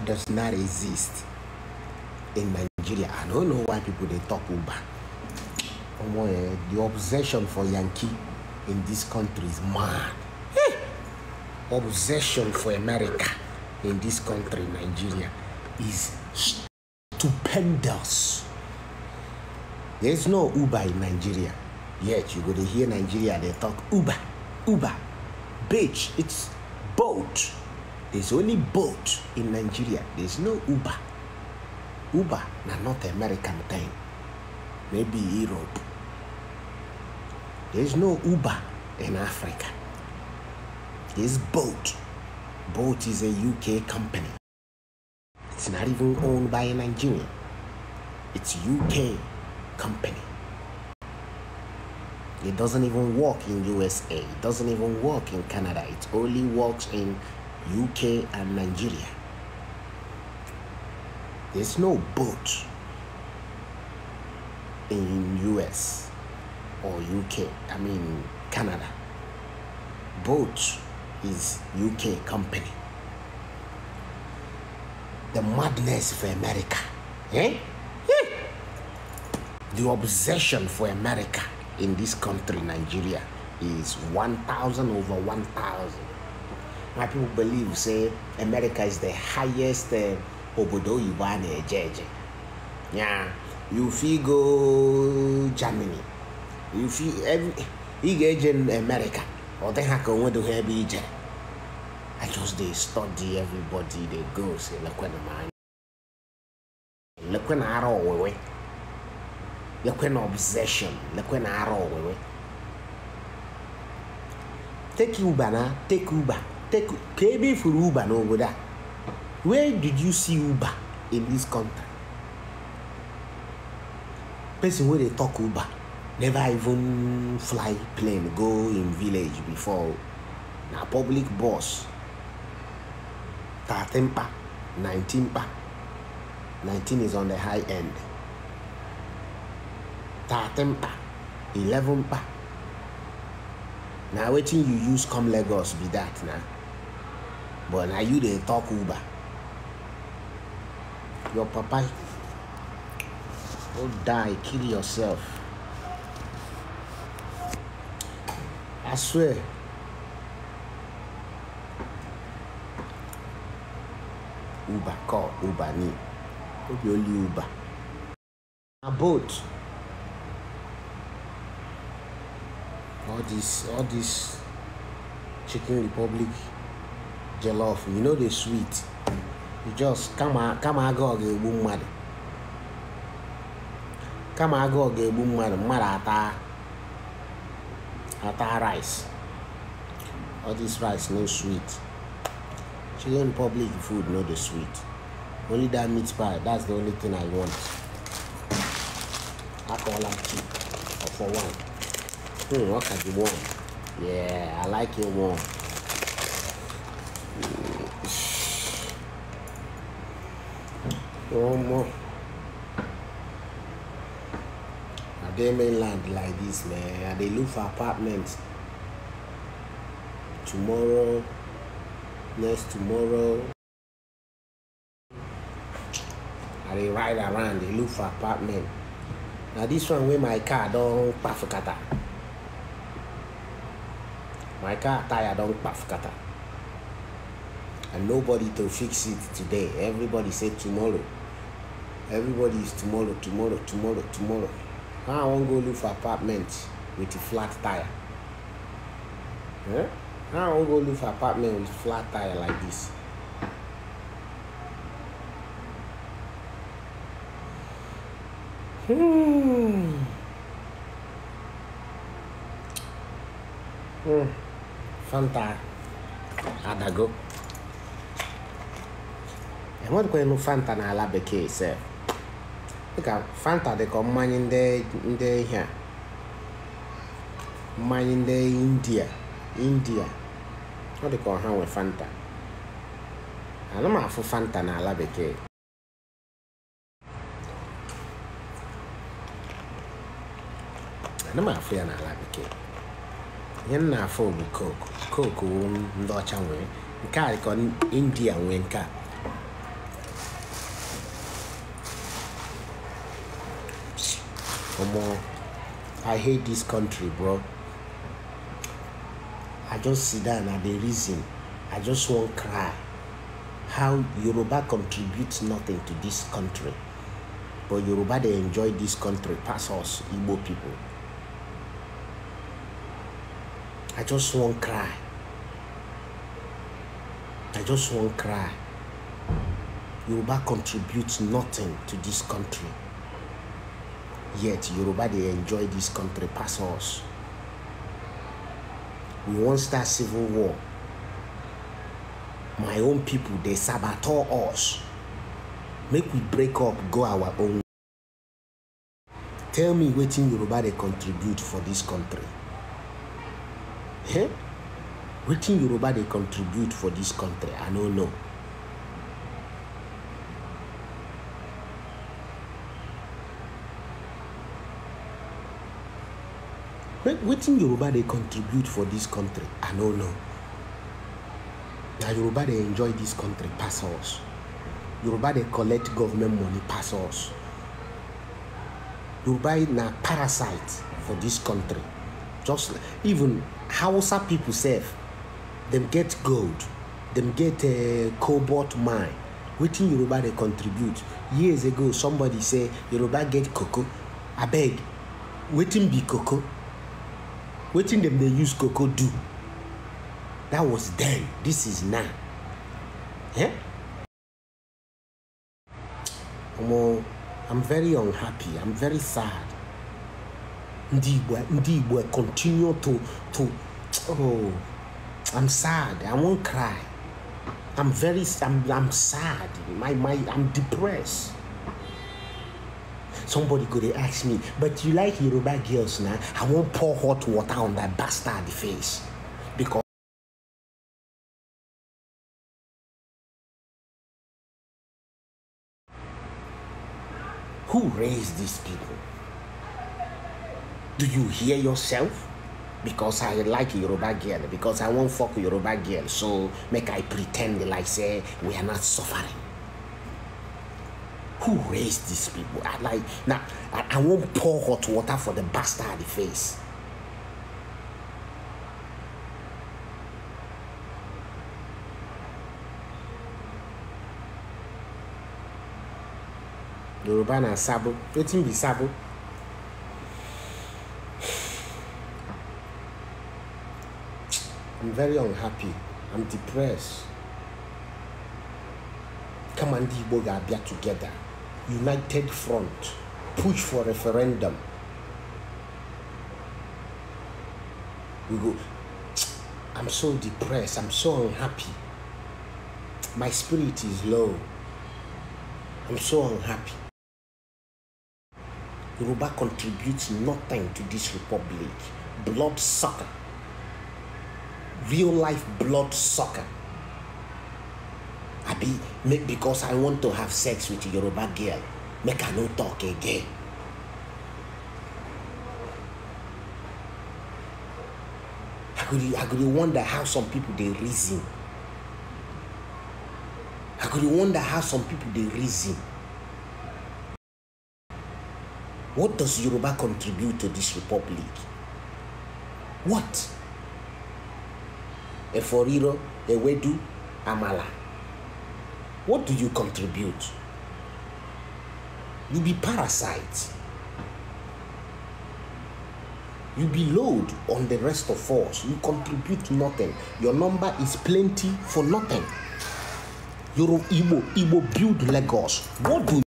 does not exist in Nigeria. I don't know why people they talk Uber. Eh, the obsession for Yankee in this country is mad. Hey! Obsession for America in this country, Nigeria, is stupendous. There's no Uber in Nigeria. Yet you go to hear Nigeria, they talk Uber, Uber, bitch, it's boat. There's only boat in Nigeria. There's no Uber. Uber na not American thing. Maybe Europe. There's no Uber in Africa. There's boat. Boat is a UK company. It's not even owned by a Nigerian. It's UK company. It doesn't even work in USA. It doesn't even work in Canada. It only works in UK, and Nigeria. There's no boat in US or UK, I mean Canada. Boat is UK company. The madness for America. Eh? Hmm. The obsession for America in this country, Nigeria, is 1,000 over 1,000. my people believe say america is the highest eh, obodo oyibo a eje eje ya you fit go germany you fit ị ga-eje america ọ dịghị ka onwedoghị ebe ije i just dey study everybody dey go say lekwena m anya lekwena ara owewe lekwena obsession lekwena ara owewe take uber na take uber take ka for Uber uba n'obodo a where did you see Uber in this country person wey dey talk Uber, never even fly plane go him village before na public bus Thirteen pa nineteen pa Nineteen is on the high end Thirteen pa eleven pa na wetin you use come lagos be that na but na you dey talk uber your papa go die kill yourself i swear uber call uber ni no be only uber A boat all this all this chicken republic jollof you know the sweet you just come, come agu go again boom mmadụ Come agu go again boom mmadụ mmadụ ata ata rice all this rice no sweet children public food no the sweet only that meat pie that's the only thing i want I call cheap or for one hmm can you want? yeah i like it warm. omo are they mainland like this, man Are they look for apartments tomorrow next tomorrow Are they ride around They look for apartment Now this one wey my car don kpafukata my car tire don kpafukata and nobody to fix it today everybody say tomorrow everybody is tomorrow tomorrow tomorrow tomorrow now i wan go look for apartment with a flat tire eh? now i wan go look for apartment with flat tire like this hmm. Hmm. fanta adago enwerekwanụ fanta n'ala bekee sef dịka fanta dịka mmanya ndị ihe a mmanya ndị india india ọ dịka ọha nwe fanta ana m fanta n'ala bekee ana m afụ ya n'ala bekee ihe nna afọ afụ bụ koku koku ndị ọcha nwere nke a dịka india nwee nke a Omo, I hate this country, bro. I just sit down and dey reason. I just wan cry. How Yoruba contributes nothing to this country. But Yoruba dey enjoy this country pass us Igbo people. I just wan cry. I just wan cry. Yoruba contributes nothing to this country. Yet Yoruba they enjoy this country pass us. We won't start civil war. My own people they saboteur us. Make we break up, go our own. Tell me wetin Yoruba they contribute for this country. Eh? Wetin Yoruba they contribute for this country, I don't know. wetin yoruba dey contribute for dis country i no know na yoruba dey enjoy dis country pass us yoruba dey collect government money pass us yoruba na parasite for dis country just even hausa pipo sef dem get gold dem get eh, cobalt mine wetin yoruba dey contribute years ago somebody say yoruba get cocoa abeg wetin be cocoa in them they use cocoa do that was then this is now Yeah. i'm very unhappy i'm very sad Indeed, we indeed we continue to to oh i'm sad i won't cry i'm very i'm, I'm sad my my i'm depressed Somebody could have asked me, but you like Yoruba girls now? I won't pour hot water on that bastard face. Because Who raised these people? Do you hear yourself? Because I like Yoruba girl, because I won't fuck Yoruba girl, so make I pretend like say we are not suffering who raised these people? I like now. I, I won't pour hot water for the bastard the face. Yoruba na sabo. Wetin be sabo? I'm very unhappy. I'm depressed. Come and the Igbo ga together united front push for referendum we go i'm so depressed i'm so unhappy my spirit is low i'm so unhappy Yoruba contributes nothing to this republic blood sucker real life blood sucker abi make because i want to have sex with yoruba girl make i no talk again. i go dey i go dey wonder how some people dey reason i go dey wonder how some people dey reason what does yoruba contribute to this republic what Eforiro, Ewedu, Amala. What do you contribute? You be parasite. You be load on the rest of us. You contribute nothing. Your number is plenty for nothing. Yoruba Igbo, build Lagos. What do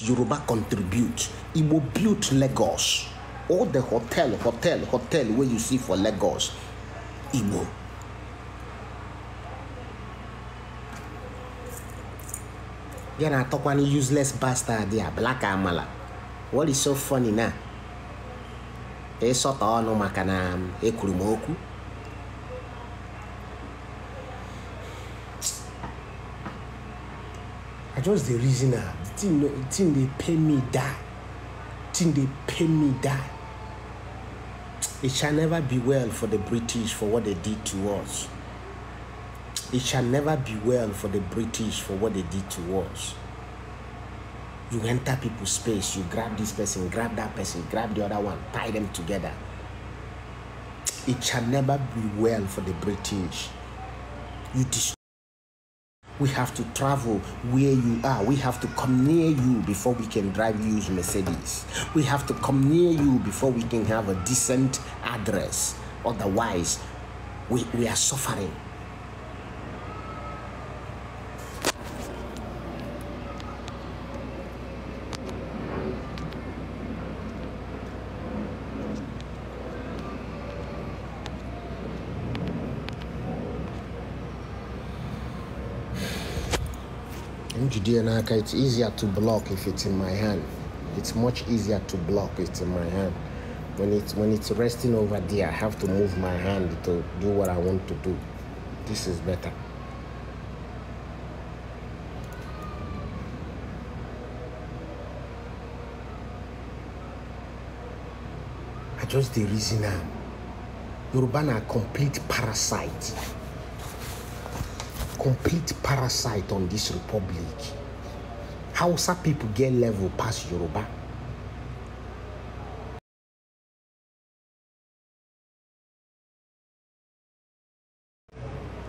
Yoruba contribute? Igbo build Lagos. All the hotel, hotel, hotel where you see for Lagos, Igbo. bịa na-atọkwa na useless bastard a black amala what is so funny na ịsọta ọnụ maka na um, ekwuru m okwu I just dey reason am the thing the thing dey pay me die the thing dey pay me die it shall never be well for the British for what they did to us. It shall never be well for the British for what they did to us. You enter people's space, you grab this person, grab that person, grab the other one, tie them together. It shall never be well for the British. You We have to travel where you are. We have to come near you before we can drive to Mercedes. We have to come near you before we can have a decent address. Otherwise, we, we are suffering. I'm It's easier to block if it's in my hand. It's much easier to block if it's in my hand. When it's when it's resting over there, I have to move my hand to do what I want to do. This is better. I just the reason now. Yoruba are complete parasite complete parasite on this republic. Hausa people get level past Yoruba.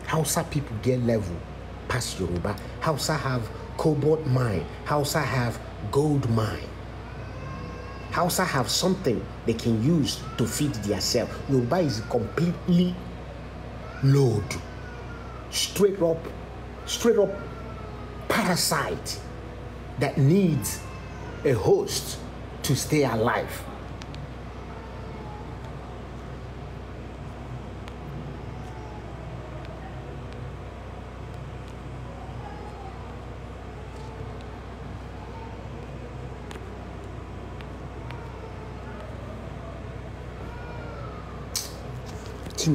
Hausa people get level past Yoruba. Hausa have cobalt mine. Hausa have gold mine. Hausa have something they can use to feed themselves. Yoruba is completely loaded straight up, straight up parasite that needs a host to stay alive.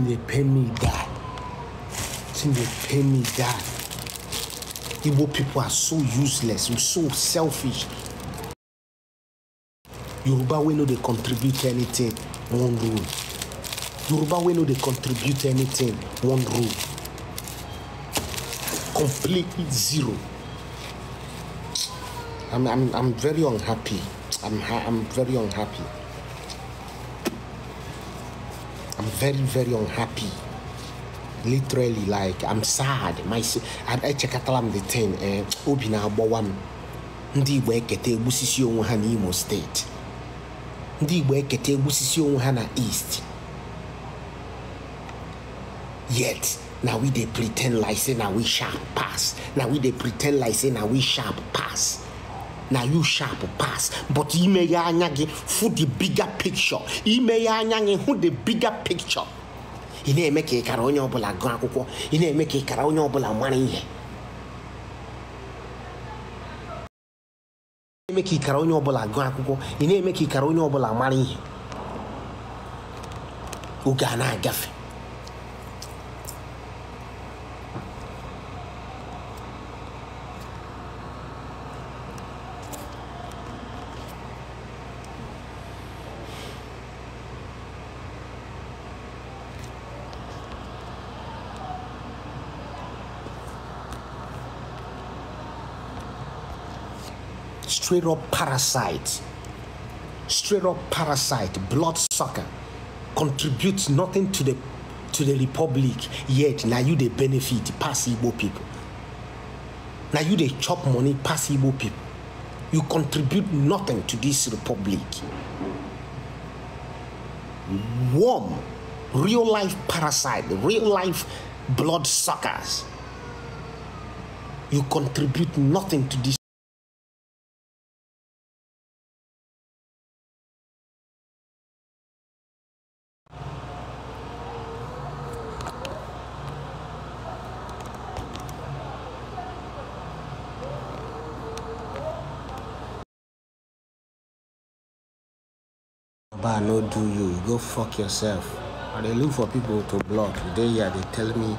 They pay me that. thing dey pain me that. igbo people are so useless and so selfish yoruba wey no they contribute anything One rule yoruba wey no they contribute anything One rule completely zero i'm i'm i'm very unhappy i'm i'm very unhappy i'm very very unhappy. literally like i'm sad my I echekatala m the thing eh, obi na-agbawa m ndị igbo Kete egbusisi onwe ha n'imo state. ndị igbo Kete egbusisi onwe ha na east yet now we dey pretend like say now we sharp pass Now we dey pretend like say now we sharp pass na you sharp pass but imeghe anya gị fụ the bigger picture imeghe anya gị hụ the bigger picture ị na-eme ka ịkara onye ọbụla gụọ akwụkwọ ị na-eme ka ịkara onye ọbụla mara ihe ị na-eme ka ịkara onye ọbụla gụọ akwụkwọ ị na-eme ka ịkara onye ọbụla mara ihe oge a na-agafe straight up parasite, straight up parasite, bloodsucker, contributes nothing to the to the republic yet now you they benefit pass Igbo people. Now you they chop money pass Igbo people. You contribute nothing to this republic. Warm, real life parasite, real life bloodsuckers. You contribute nothing to this. go fuck yourself. And they look for people to block. Today, yeah, they tell me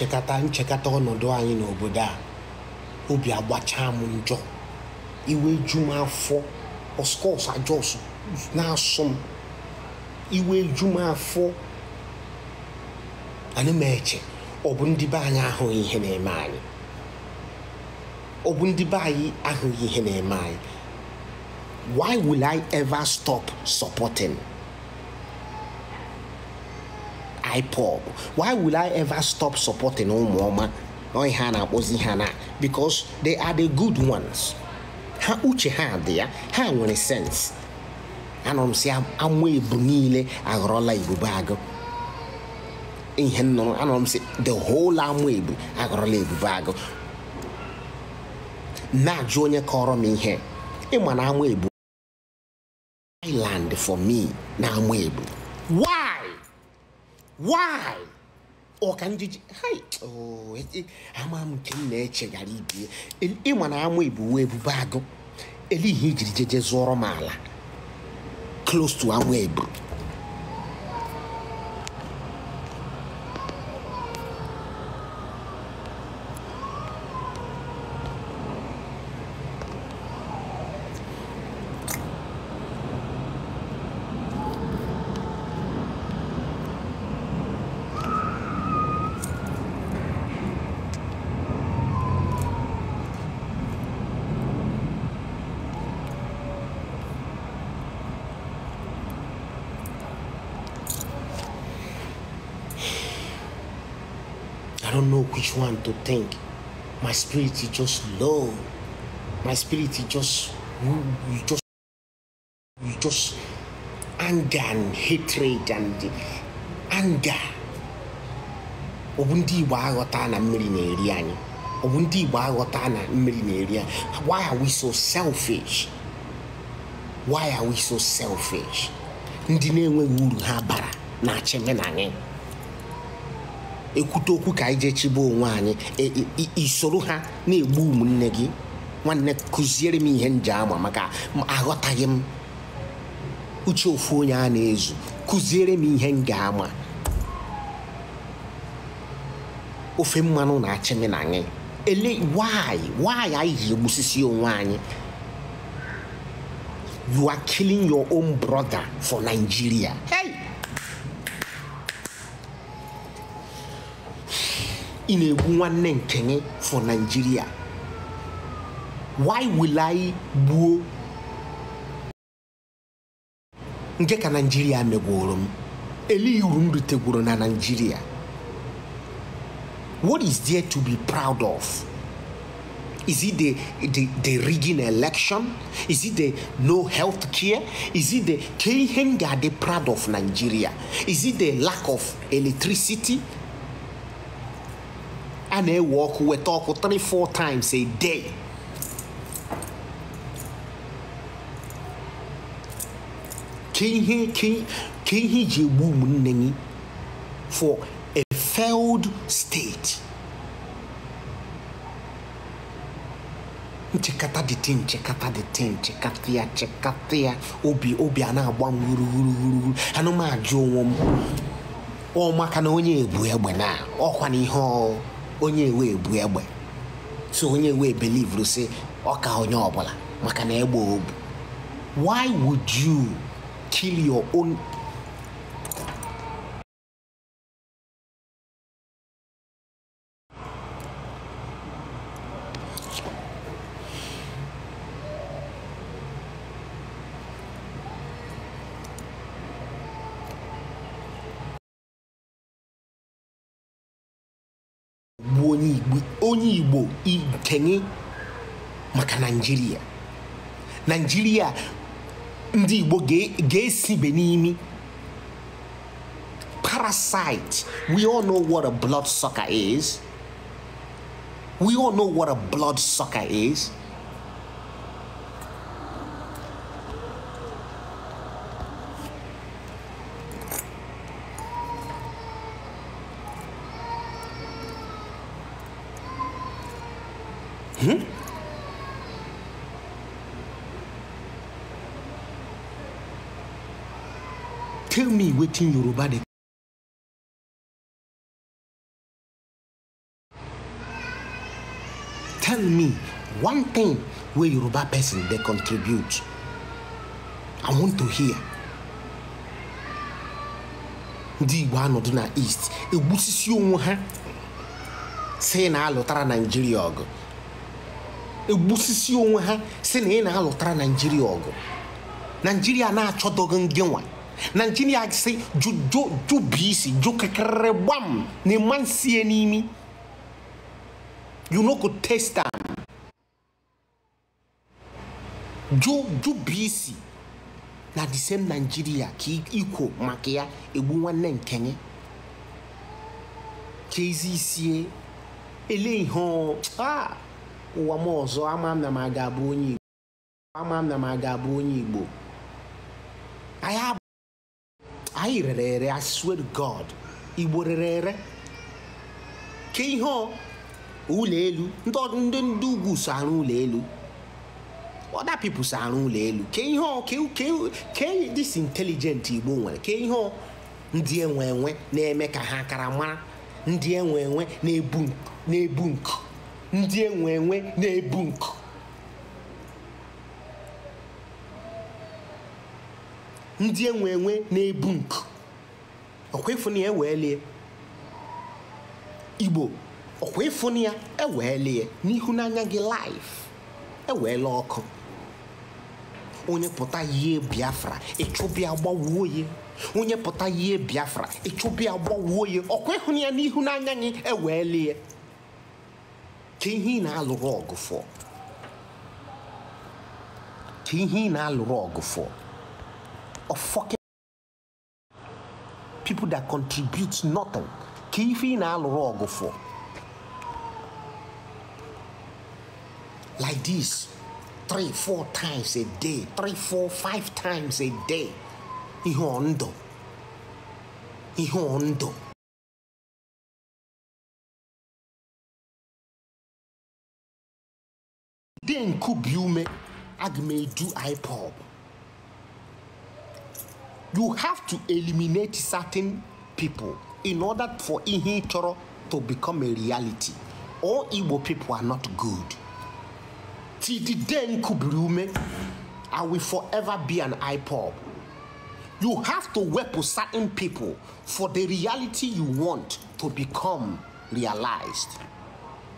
nchekata nchekata ọnọdụ anyị n'obodo a obi agbachaa m njọ iwe ju m afọ ọskọs ajọs na-asọ m iwe ju m afọ anyị m eche ọ bụ ndị be anyị ahụghị ihe na-eme anyị ọ bụ ndị be anyị ahụghị ihe na-eme anyị why will I ever stop supporting IPOB. Why will I ever stop supporting Umuoma woman? Hana Ozihana? Because they are the good ones. Ha uche ha there, ha nwere sense. Anọ m si anwa ebu niile aghọrọla ibube agụ. Ihe nnụnụ anọ m si the whole anwa ebu aghọrọla ibube agụ. Na-ajụ onye kọrọ m ihe ịma na anwa ebu island for me na anwa ebu. why ọka njiji ama amam nke m na gara ibie ịma na ama ebuwe ebube agụ ihe ijiri jeje zụọrọ m ala close to anwụ ebu think. My spirit is just low. My spirit is just you just you just anger and hatred and anger. Ọ bụ ndị Igbo aghọta na mmiri na-eri anyị. Ọ bụ ndị Igbo aghọta na mmiri na-eri anyị. Why are we so selfish? Why are we so selfish? Ndị na-enweghị uru ha bara na-achị anyị. ekwute okwu ka anyị jee chibe onwe anyị e, e, e, isoro ha na-egbu ụmụnne gị nwanne kụziere m ihe nje ama maka aghọtaghị m uche ofu onye a na-ezu kuziere m ihe nga ama ofe mmanụ na-achị m na anyị ele why why anyị ji egbusisi onwe anyị you are killing your own brother for Nigeria In a one name for Nigeria why will I go? Get a Nigeria megworo m elee uru m na Nigeria what is there to be proud of Is it the, the, the rigging election? Is it the no health care? Is it the killing they are proud of Nigeria? Is it the lack of electricity? a na-ewe ọkụ weta ọkụ 3-4 times a day ka ihe iji ihe egbu ụmụnne gị for a failed state nchekata dịte nchekata dịte nchekata ya nchekata ya obi obi a na-agba wuruwuruwuru anụmanụ onwe m ọ maka na onye egbu egbe na ọkwa na ihe ọ onye wee bu egbe so onye wee belivru si ọka onye ọbụla maka na egbe obu why would you kill your own ndị Igbo ikenye maka Naịjirịa Naịjirịa ndị Igbo ga-esibe n'imi parasite we all know what a blood sucker is we all know what a blood sucker is wetin yoruba dey tell me one thing wey yoruba person dey contribute i want to hear ndị igbo anọdụ na east egbusisi onwe ha si na-alụtara naijiria ọgụ egbusisi onwe ha si na ị na-alụtara naijiria ọgụ naijiria na-achọdọghị ngịnwa nankyini ase dwo dwo dwo biisi dwo kekerɛ bam ne mansie ni mi you no go taste am dwo dwo biisi na the same nigeria kì í kò makia egbu nwanne nkẹnyẹ ka ezi isie eléyìí hàn ah ụwa m ama m na m aga abụ onye igbo ama m na m aga abụ onye igbo anyị anyị rere ere I God igbo rere ere ke ihe ụlọ elu ndị ndị ugwu so arụ ụlọ elu other people so arụ ụlọ elu ke ihe ke this intelligent igbo nwere ke ihe ndị enwe enwe na-eme ka ha akara mara ndị enwe enwe na-ebu nku ndị enwe enwe na-ebu nku ndị enwe enwe na-ebu nku ọkwa ịfụ na ya eweelie igbo ọkwa ịfụ na ya eweelie n'ihu n'anya gị laif eweela ọkụ onye pụta yie biafra ịchụbịa gbawuo ya onye pụta yie biafra ịchụbịa gbawuo ya ọkwa ịhụ ya n'ihu n'anya gị eweelie ka ihe ị na-alụrụ ọgụ ka ihe ị na-alụrụ ọgụfọ. of fucking people that contribute nothing keeping ife ị for like this three four times a day three four five times a day ihe ọndụ ihe ọndụ de nkubi ume aga m you have to eliminate certain people in order for Ihitoro to become a reality. All Igbo people are not good. Tididen Kubriume, I will forever be an IPOB. You have to work with certain people for the reality you want to become realized.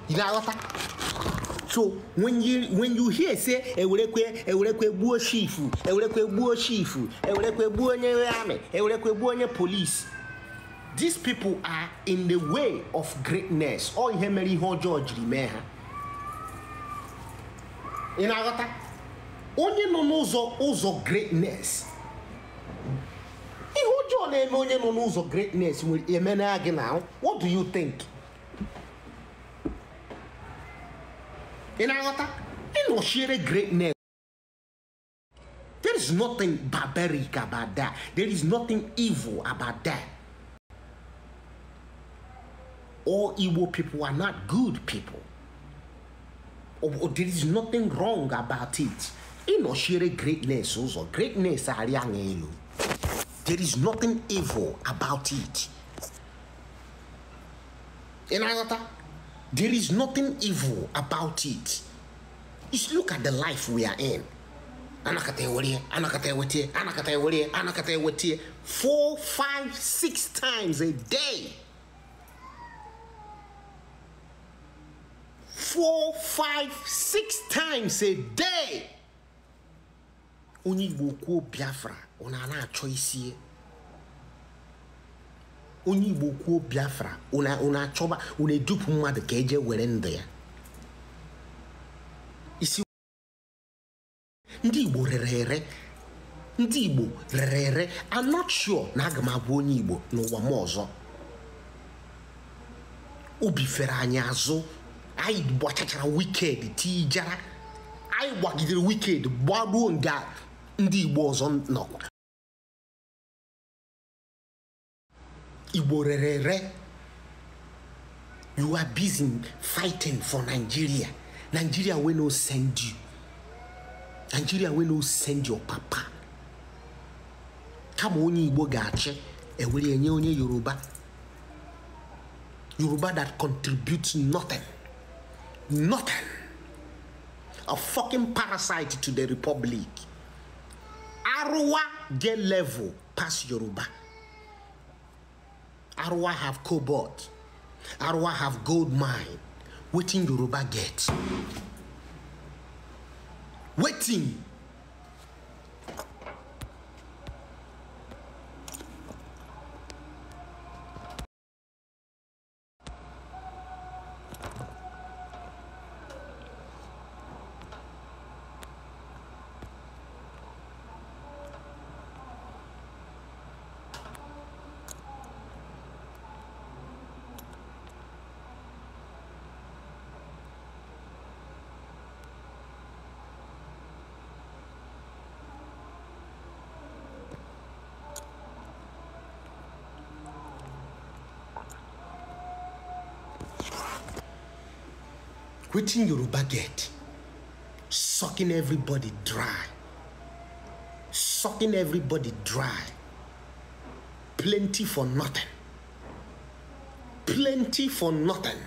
You know what? So when you when you hear say ewurekwe ewurekwe gbuo chief ewurekwe gbuo chief ewurekwe gbuo onye army ewurekwe gbuo onye police these people are in the way of greatness ọ ihe mere ihe ọjọọ jiri mee ha ị na-aghọta onye nọ n'ụzọ ụzọ greatness ihe ọjọọ na-eme onye nọ n'ụzọ greatness emena gị na what do you think Ị na-aghọta ịnọchiere greatness there is nothing barbaric about that there is nothing evil about that all evil people are not good people or, oh, or oh, there is nothing wrong about it ịnọchiere greatness also. Oh, greatness are elu there is nothing evil about it ị there is nothing evil about it. Just look at the life we are in. Four, five, six times a day. Four, five, six times a day. Onye Igbo kwuo Biafra, ọ na-ana achọ onye igbo kwuo biafra achọba unu edupụ mmadụ ka eje were ndụ ya isi ndị igbo rere ere ndị igbo rere ere I'm not na aga m abụ onye igbo n'ụwa m ọzọ obi fere anyị azụ anyị gbachachara wiked tijara anyị gbagidere wiked gbaruo nga ndị igbo ọzọ nọkwa Iborere, You are busy fighting for Nigeria. Nigeria will not send you. Nigeria will not send your papa. Kama onye Igbo ga-achị, ewere Yoruba. Yoruba that contributes nothing. Nothing. A fucking parasite to the republic. Arua get level past Yoruba. How do I have cobalt. How do I have gold mine. Waiting Yoruba get. Waiting. quitting yoruba get sucking everybody dry sucking everybody dry plenty for nothing plenty for nothing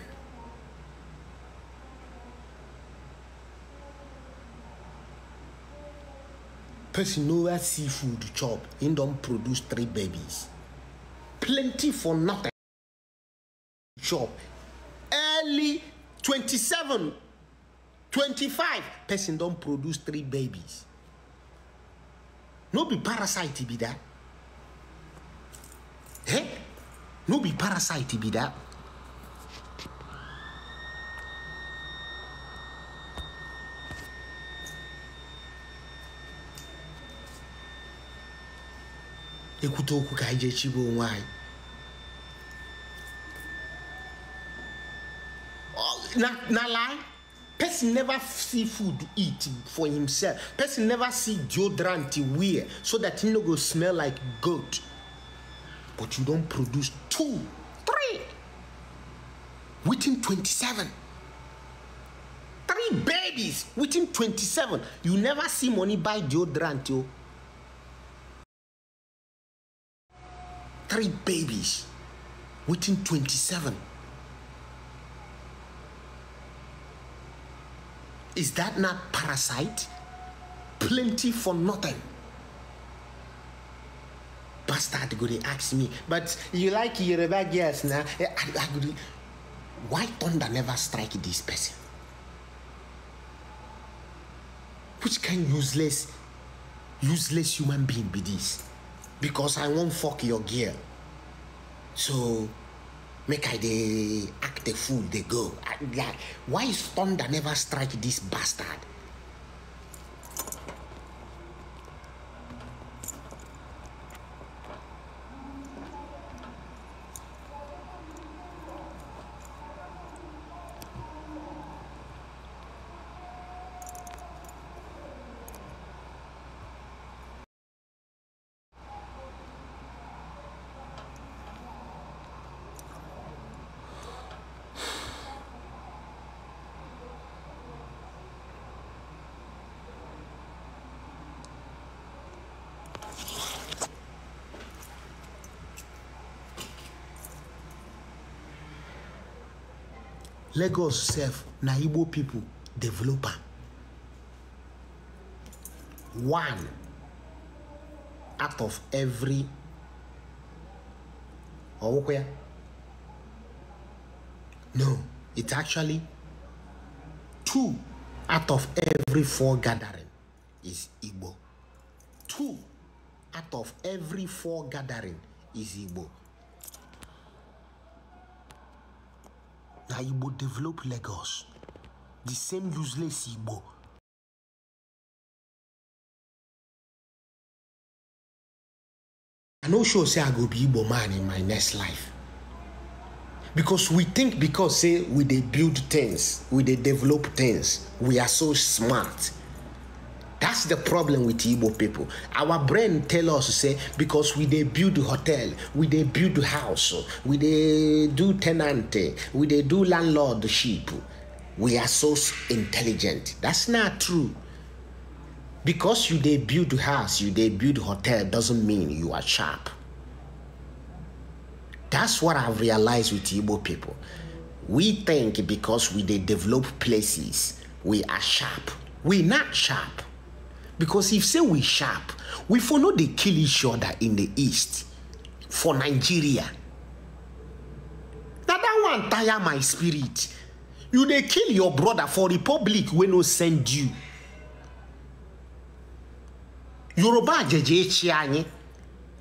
person nowhere seafood chop him don't produce three babies plenty for nothing chop early 27, 25, person don't produce three babies. No be parasite be that. Eh? No be parasite be that. ekwute okwu ka anyị onwe anyị not, not lie person never see food eat for himself person never see deodorant wear so that he no go smell like goat but you don't produce two three within 27 three babies within 27 you never see money buy deodorant oh. Three babies within 27 Is that not parasite? Plenty for nothing. Bastard Guri asked me, but you like Yoruba girls now? Eh, why thunder never strike this person? Which kind useless, useless human being be this? Because I won't fuck your gear. So make I dey act the fool, they go. I, like, why is thunder never strike this bastard? lagos sef na igbo pipo develop am one out of every ọwụkwa ya no it's actually two out of every four gathering is igbo two out of every four gathering is igbo that Igbo develop Lagos. The same useless Igbo i no sure say i go be igbo man in my next life because we think because say we dey build things we dey develop things we are so smart That's the problem with Igbo people. Our brain tell us say because we they build hotel, we they build house, we they do tenant, we they do landlordship. We are so intelligent. That's not true. Because you they build house, you they build hotel doesn't mean you are sharp. That's what I've realized with Igbo people. We think because we they develop places, we are sharp. We not sharp. because if say we sharp we for no dey kill each other in the east for nigeria na that one tire my spirit you dey kill your brother for republic wey no send you yoruba ajeje echi anyị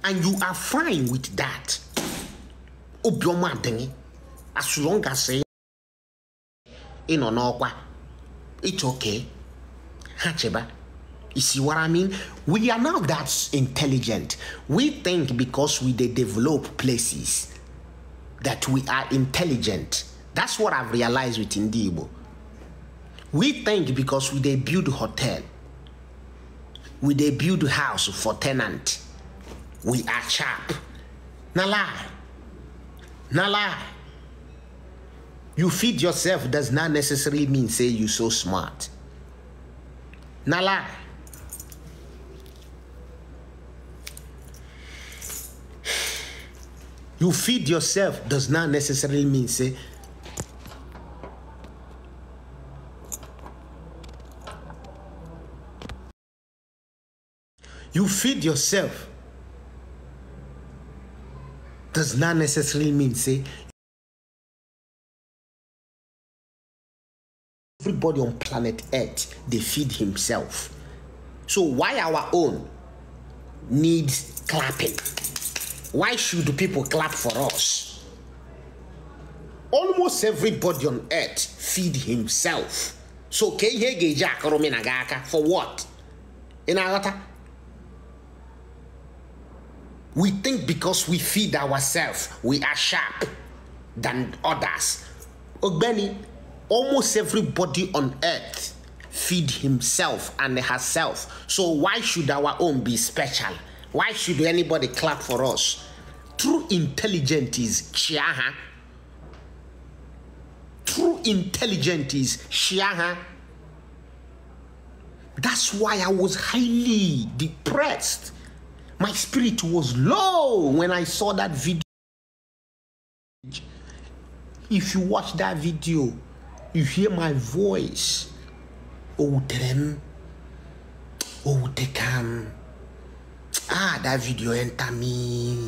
and you are fine with that Obioma, adịghị as long as ị nọ n'ọkwa it's okay ha cheba You see what I mean? We are not that intelligent. We think because we they develop places that we are intelligent. That's what I've realized with Indibo. We think because we they build hotel, we they build house for tenant, we are sharp. Na lie. Na lie. You feed yourself does not necessarily mean say you so smart. Na lie. you feed yourself does not necessarily mean say you feed yourself does not necessarily mean say everybody on planet earth they feed himself so why our own needs clapping why should people clap for us? Almost everybody on earth feed himself. So ka ihe ga-eji na for what? i We think because we feed ourselves, we are sharp than others. Ogbeni, almost everybody on earth feed himself and herself. So why should our own be special? Why should anybody clap for us? True intelligence is Chiaha. True intelligence is Chiaha. That's why I was highly depressed. My spirit was low when I saw that video. If you watch that video, you hear my voice. Oh, them. Oh, they can. Ah, that video enter me.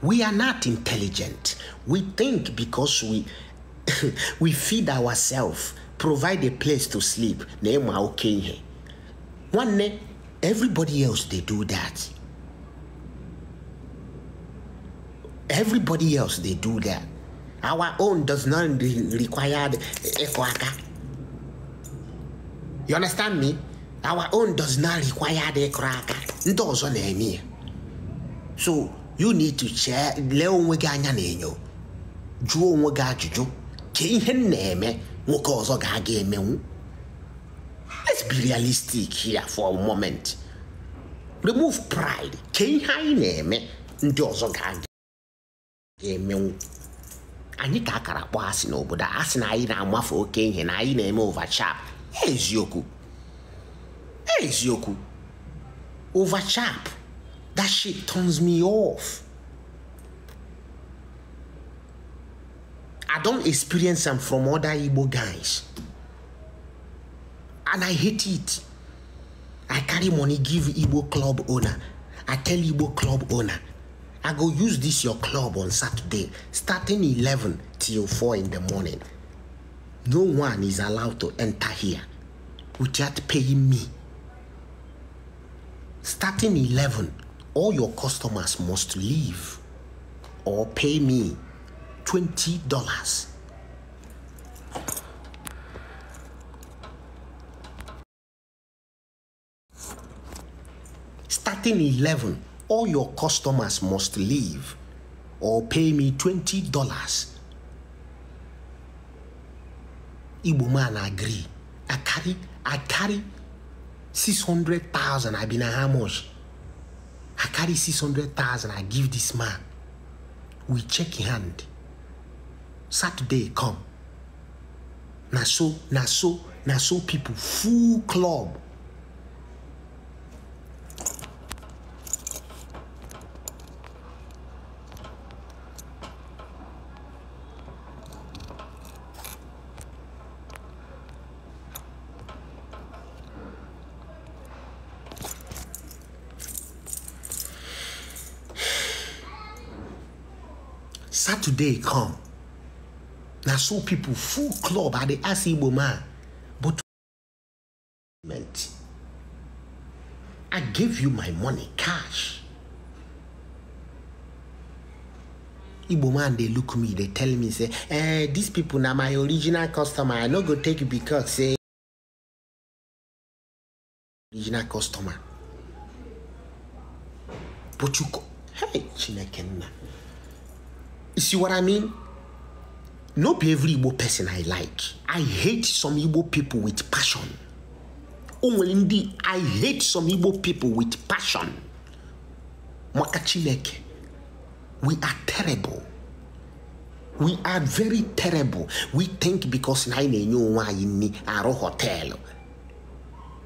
We are not intelligent. We think because we we feed ourselves, provide a place to sleep. One day, everybody else they do that. Everybody else they do that. Our own does not require the You understand me? our own does not require the cracker ndị ọzọ na-eme ya so you need to chee lee onwe gị anya na-enyo jụọ onwe gị ajụjụ ka ihe na-eme nwoke ọzọ ga-aga emenwu let's be realistic here for a moment remove pride ka ihe anyị na-eme ndị ọzọ ga-aga emenwu anyị ka akara kpọọ asị n'obodo asị na anyị na-amafe oke ihe na anyị na-eme overchap eziokwu over chap? that shit turns me off i don't experience am from other igbo guys and i hate it i carry money give igbo club owner i tell igbo club owner i go use this your club on saturday starting 11 till 4 in the morning no one is allowed to enter here without paying me starting 11 all your customers must leave or pay me $20 starting 11 all your customers must leave or pay me $20 Igbo man agree I carry I carry 600,000. I been how much? I carry 600,000. I give this man. We check in hand. Saturday come. Na so, na so, so people. Full club. day come na so people full club Are dey ask igbo man but meant. i gave you my money cash igbo man They look me They tell me say eh these people now my original customer i no go take you because say original customer but you go. hey chineke nna You see what I mean? Not be every Igbo person I like. I hate some Igbo people with passion. indeed, I hate some Igbo people with passion. Makachileke, we are terrible. We are very terrible. We think because na na-enye onwe anyị nni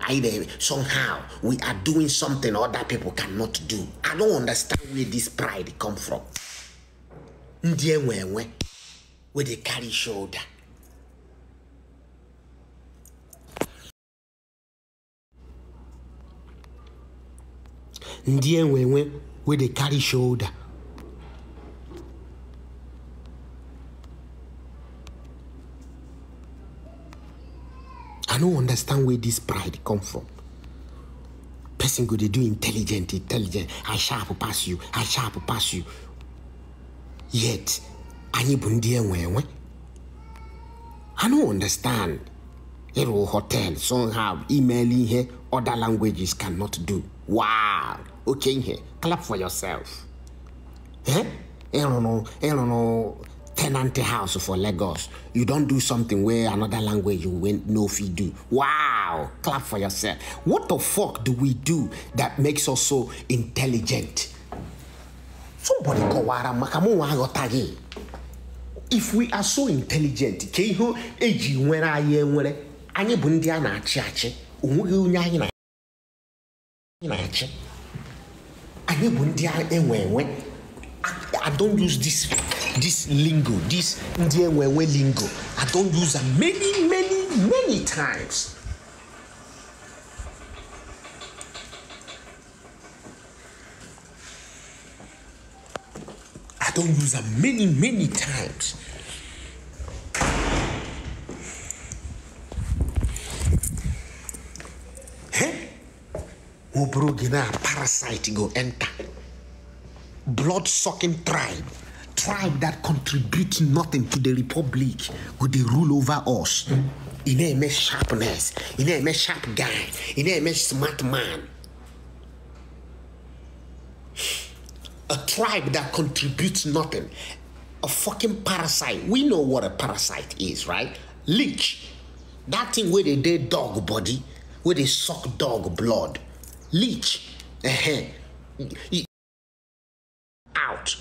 Either somehow we are doing something other people cannot do. I don't understand where this pride come from ndị enwe enwe with dey carry shoulder ndị enwe enwe with dey carry shoulder i no understand where this pride come from person go dey do intelligent intelligent i sharp pass you i sharp pass you Yet, any bụ ndị I don't understand. Hero hotel somehow email here. other languages cannot do. Wow! Okay here, clap for yourself. Eh? I don't know, I don't know tenant house for Lagos. You don't do something where another language you went no fee do. Wow! Clap for yourself. What the fuck do we do that makes us so intelligent? somebody kọwara maka mụnwa gị if we are so intelligent ka ihe eji nwere anyị enwere anyị bụ ndị a na-achị achị onweghị onye anyị na-achị anyị bụ ndị enwe enwe I don't use this this lingo this ndị enwe enwe lingo I don't use am many many many times I don't use them many, many times. Obrogina parasite go enter. Blood sucking tribe. Tribe that contributes nothing to the republic. would they rule over us. In a sharpness. In a sharp guy. In a smart man a tribe that contributes nothing, a fucking parasite. We know what a parasite is, right? Leech. That thing where they dead dog body, where they suck dog blood. Leech. Uh-huh. Out.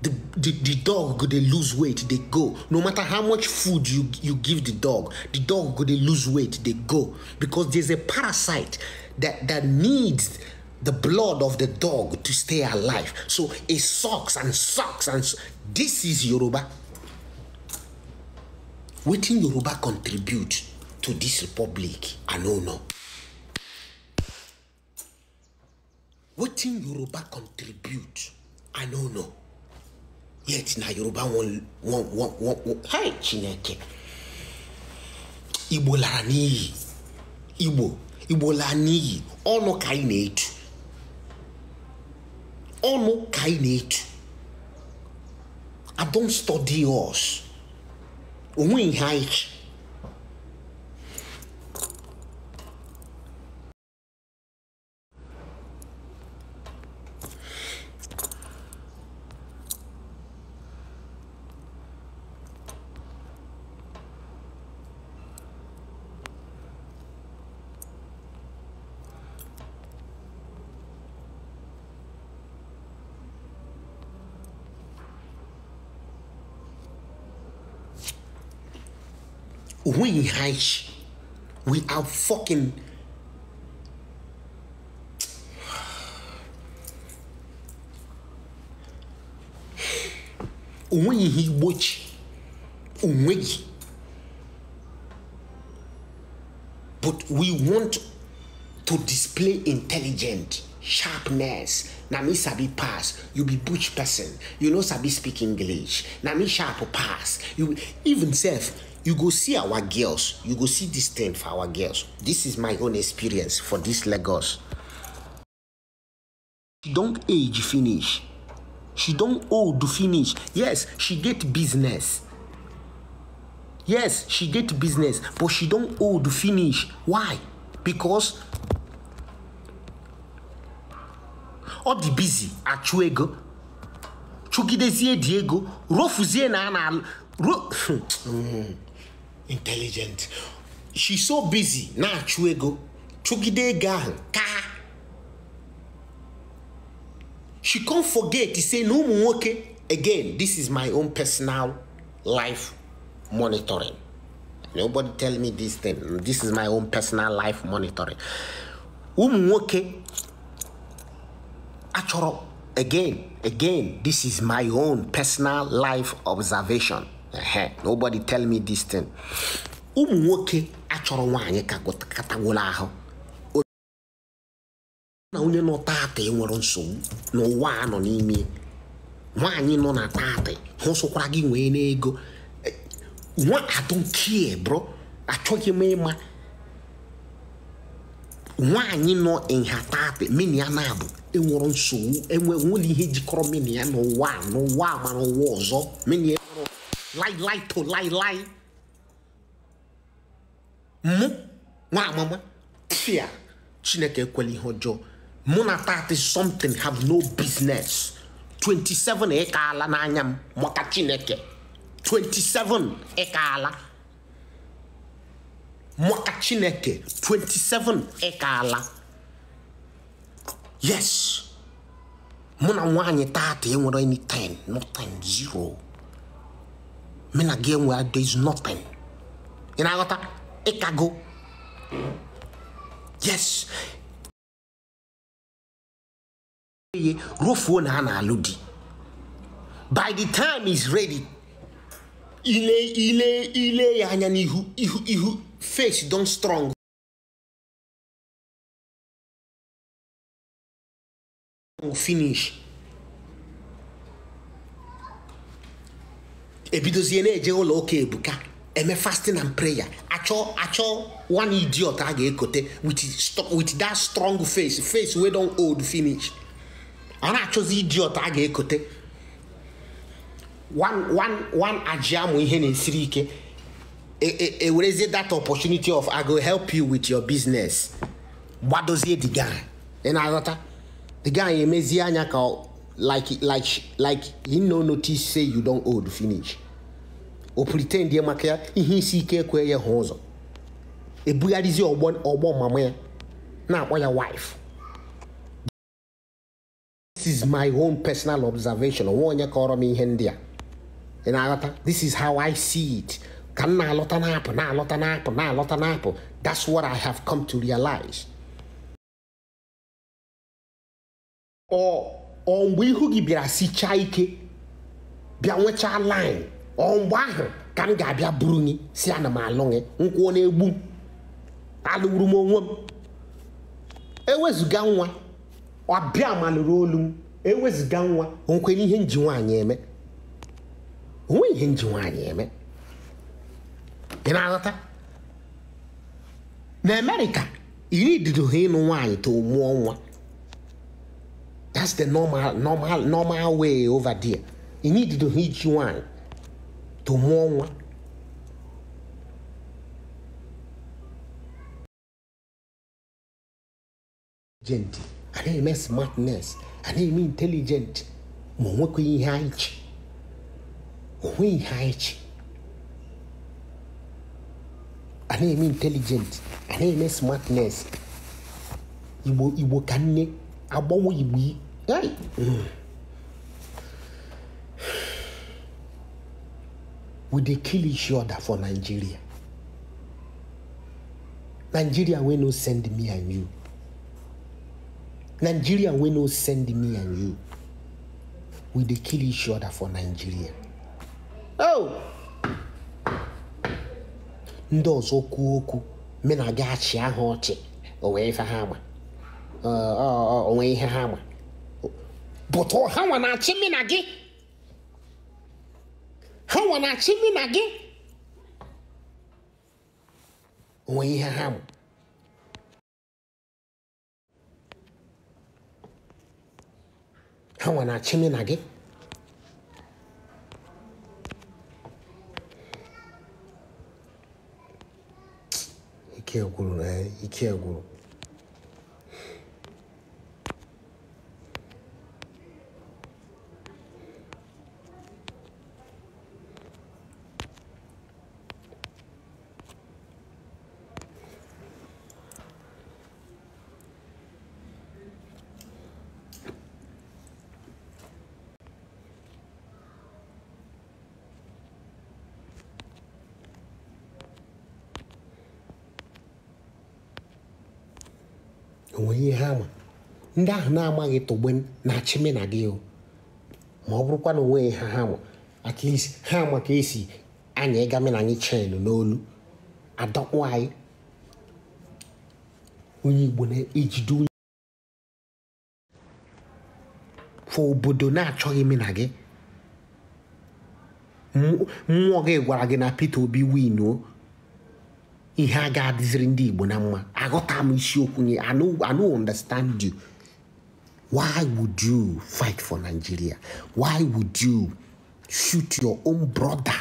The, the, the dog they lose weight, they go. No matter how much food you, you give the dog, the dog they lose weight, they go. Because there's a parasite that, that needs the blood of the dog to stay alive. So it sucks and sucks and su this is Yoruba. Wetin Yoruba contribute to this republic? I no know. Wetin Yoruba contribute? I no know. Yet na Yoruba won won won won. wan hi Chineke. Igbo lara n'iyi. Igbo Igbo lara n'iyi. Ọnụ ka anyị na-etu ọnụ ka anyị na-etu I don't study us onwe ihe anyị we reich. We are fucking. We he watch, but we want to display intelligent sharpness Now me sabi pass you be butch person you know sabi speak english Now me sharp pass you even self you go see our girls you go see this thing for our girls this is my own experience for this lagos she don't age finish she don't old finish yes she get business yes she get business but she don't old finish why because all the busy achụ ego chụgidezie dị ego rofuzie na a na ro hmm. intelligent she's so busy na-achụ chụgide ego ka she can't forget to say no more. again this is my own personal life monitoring nobody tell me this thing this is my own personal life monitoring Umuoke. nwoke achọrọ again again this is my own personal life observation nobody tell me this thing ụmụ nwoke achọrọ nwaanyị ka katagolo ahụ na onye nọ taata e nwere nsogbu n'ụwa a nọ n'ime nwaanyị nọ na taata hụ sụkwara gị nwee n'ego e, nwa adonkie bro achọghị m ịma nwaanyị nọ nha taata mini ya na-abụ enwere nsogbu enwe nwere ihe jikọrọ mini ya n'ụwa n'ụwa ma n'ụwa ọzọ mini lai mụ nwa amama tia chineke ekwela ihe ọjọọ mụ na tati something have no business 27 ịkaala e n'anya m maka chineke 27 ịkaala maka chineke 27 ịkaala e yes mụ na nwaanyị tata enwere anything 10 zero me na gị enwe there is nothing ị na-aghọta ịkago yes ye rufuo na a na-alụ di by the time is ready ile ile ile ya anya n'ihu ihu ihu face don strong finish ebidozie na-eje ụlọ ụka ebuka eme fasting and prayer achọ achọ one idiot a ga-ekote with that strong face face wey don old finish a na-achọzi idiot a ga-ekote one one one aji amụ ihe na-esiri ike ewerezie e, e that opportunity of i go help you with your business gbadozie the guy ị na-aghọta the guy emezie anya ka like like like he no notice say you don old finish o pretend ya maka ya ihe isi ike ekwe ya hụ ụzọ ebugharịzi ọgbọ ọgbọ mama ya na-akpọ ya wife this is my own personal observation onwe onye kọrọ m ihe ndị a ị na-aghọta this is how i see it ka m na-alọta na-apụ na-alọta na-apụ na-alọta na-apụ that's what i have come to realize. Ọmgbe ihu gị bịara sichaa ike bịa nwechaa line ọ ahụ ka m ga-abịa buru gị si ana m alụ gị na-egbu alụgburu m onwe m ewezụga nwa ọbịa malụrụ olu m ewezụga nwa nkwenye ihe nji nwaanyị eme onwe ihe nji nwaanyị eme ị na-aghọta na iri ha ịnụ nwaanyị to mụọ nwa That's the normal, normal, normal way over there. You need to hit one to more one. Gente, I didn't mean smartness. I didn't mean intelligent. Ma nwekwa ihe anyị chi. Onwe ihe anyị chi. A na-eme intelligent, a na-eme smartness. Igbo Igbo ka nne agbanwe Igbo we dey kill each other for nigeria nigeria wey no send me and you nigeria wey no send me and you we dey kill each other for nigeria oh ndị ọzọ kwuo okwu me na gị achị ahụ ọchị onwe ihe ha ma bụtụ ha nwa na-achị mi na gị ha nwa na-achị mi na gị onwe ihe ha bụ ha nwa na-achị mi na gị ike gwụrụ na ike gwụrụ ndị ahụ na amaghị togbe na-achị na gị o ma ọ bụrụkwa na onweghị ha ha at least ha ka esi anya ịga mena anyị chen n'olu adọkpụ anyị onye igbo na-ejide onye fọ obodo na-achọghị na gị mmụọ gị gwara gị na Peter Obi win ihe a ga-adịziri ndị Igbo na mma aghọta m isiokwu nye I no understand you Why would you fight for Nigeria? Why would you shoot your own brother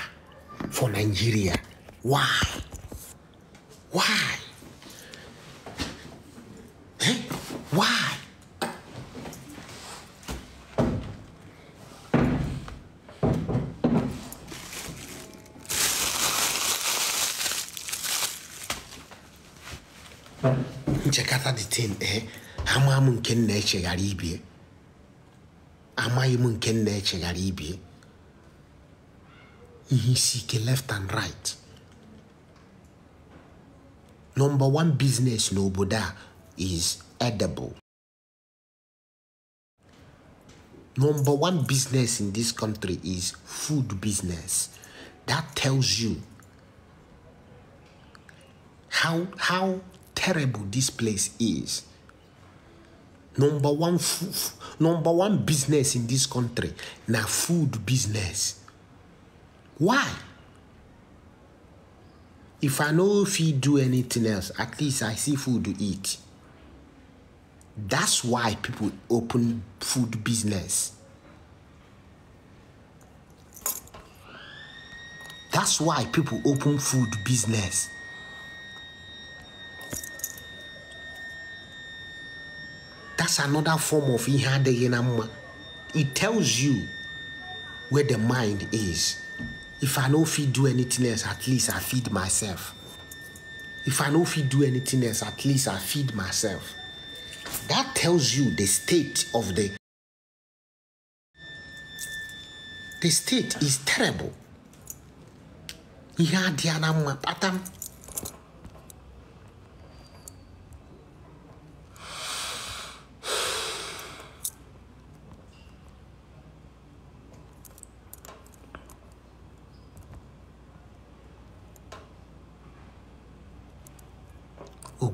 for Nigeria? Why? Why? Eh? Why? Check out the thing, eh? ama m nke nna echeghara ibie amaghị m nke nna echeghara ibie ihe isi ike left and right number one business n'obodo a is edible number one business in this country is food business that tells you how how terrible this place is number one food number one business in this country na food business why if i no fit do anything else at least i see food to eat that's why people open food business that's why people open food business that's another form of ihe it tells you where the mind is if i don't feed do anything else at least i feed myself if i don't feed do anything else at least i feed myself that tells you the state of the the state is terrible ihe adịghị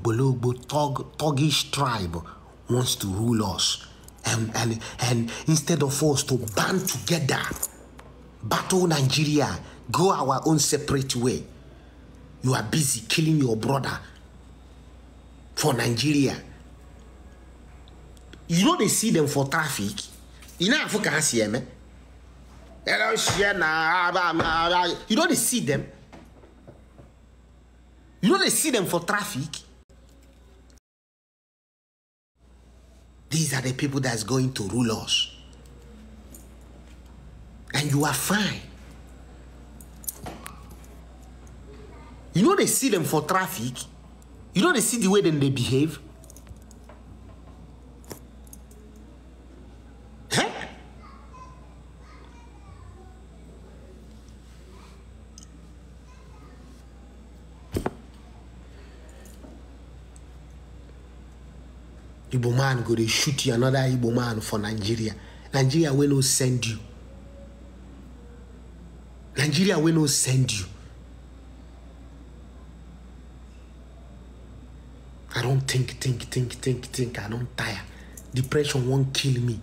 Bologbo thug, thuggish tribe wants to rule us. And, and, and instead of us to band together, battle Nigeria, go our own separate way, you are busy killing your brother for Nigeria. You know they see them for traffic. You know Africa here, man. You know they see them. You know they see them for traffic. These are the people that's going to rule us. And you are fine. You know they see them for traffic. You know they see the way them they behave. igbo man go dey shoot you another igbo man for nigeria nigeria wey no send you nigeria wey no send you i don think think think think think i don tire depression wan kill me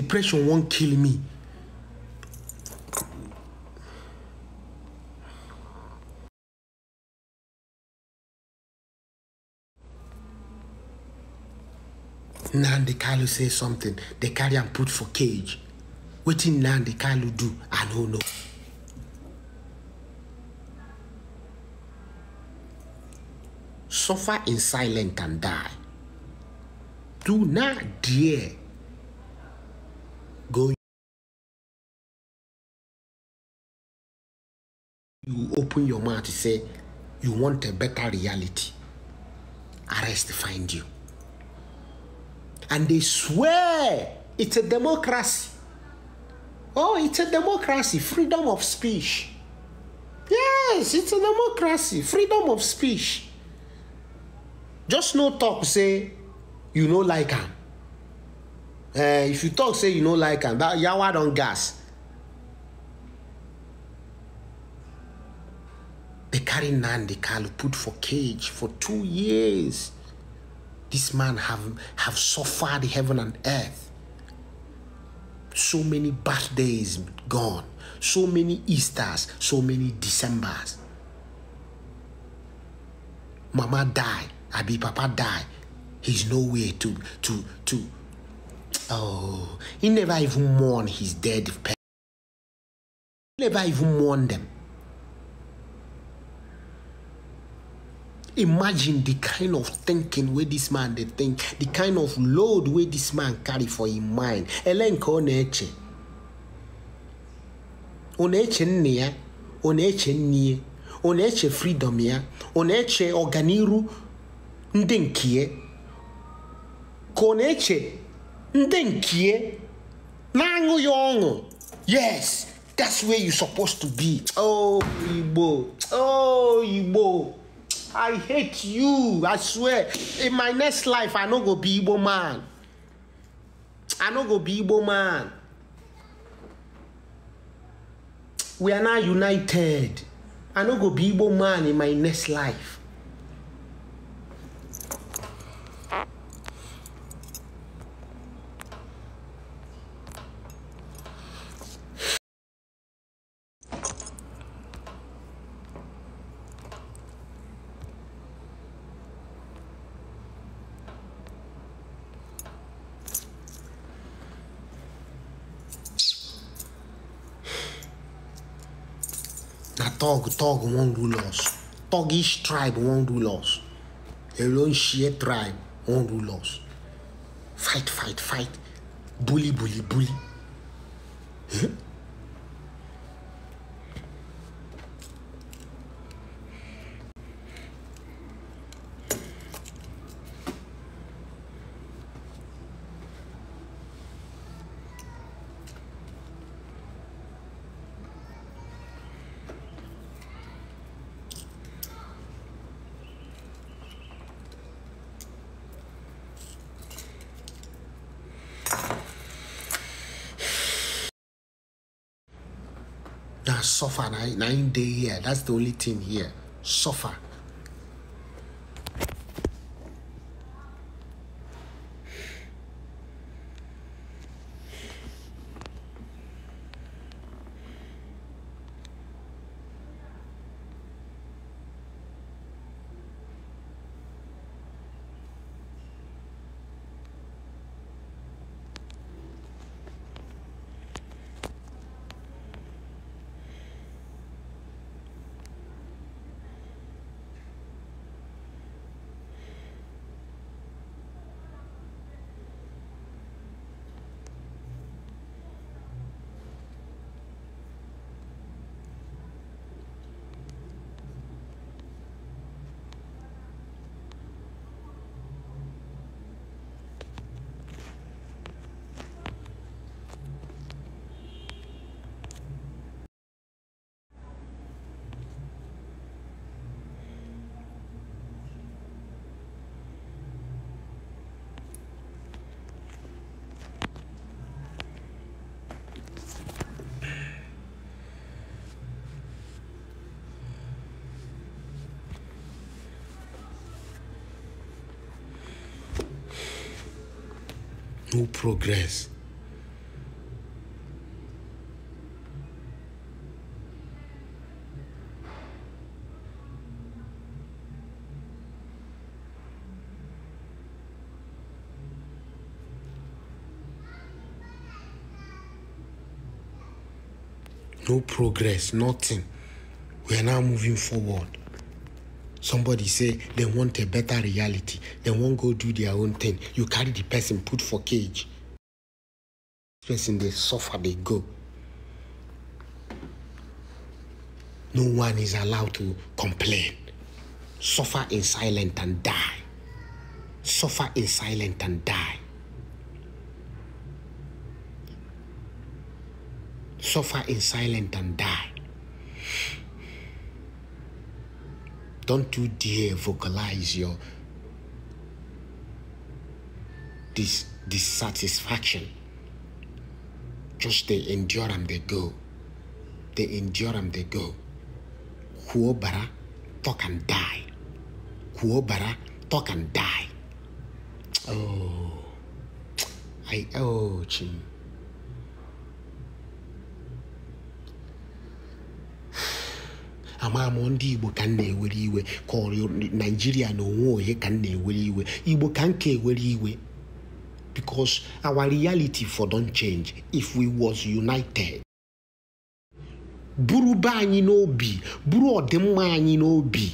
depression won't kill me Now the Kalu say something The carry am put for cage now the Kalu do i don't know. suffer in silence and die do not dare go you open your mouth to say you want a better reality arrest find you and they swear it's a democracy oh it's a democracy freedom of speech yes it's a democracy freedom of speech just no talk say you know like him uh, if you talk say you know like am that yawa don't gas They carry nandi kalu put for cage for two years this man have have suffered heaven and earth so many birthdays gone so many easters so many decembers mama die abi papa die he's nowhere to to to Oh, he never even mourned his dead parents. Never even mourned them. Imagine the kind of thinking where this man they think, the kind of load where this man carry for his mind. Elenka ọ na-eche. Ọ na-eche freedom ya, ọ na-eche koneche. ndị ndị nkie na-aṅụ ọṅụ yes that's where you supposed to be oh igbo oh igbo i hate you i swear in my next life i no go be igbo man i no go be igbo man we are now united i no go be igbo man in my next life Tug wan rule us thuggish tribe wan rule us their own tribe wan rule us fight fight fight bully bully bully. nine, nine day here. That's the only thing here. Suffer. no progress. No progress, nothing. We are now moving forward. Somebody say they want a better reality. They won't go do their own thing. You carry the person, put for cage. Person they suffer, they go. No one is allowed to complain. Suffer in silence and die. Suffer in silence and die. Suffer in silence and die. Don't you dare vocalize your dis- dissatisfaction. Just they endure and they go. They endure and they go. Kuobara, talk and die. Kuobara, talk and die. Oh, I, oh, ching. ama ndị igbo ka na-ewere iwe ka ọrịa naijiria na onwe onye ka m na-ewere iwe igbo ka nke ka ewere iwe because our reality for don change if we was united buru be anyị n'obi buru ọdịmma anyị n'obi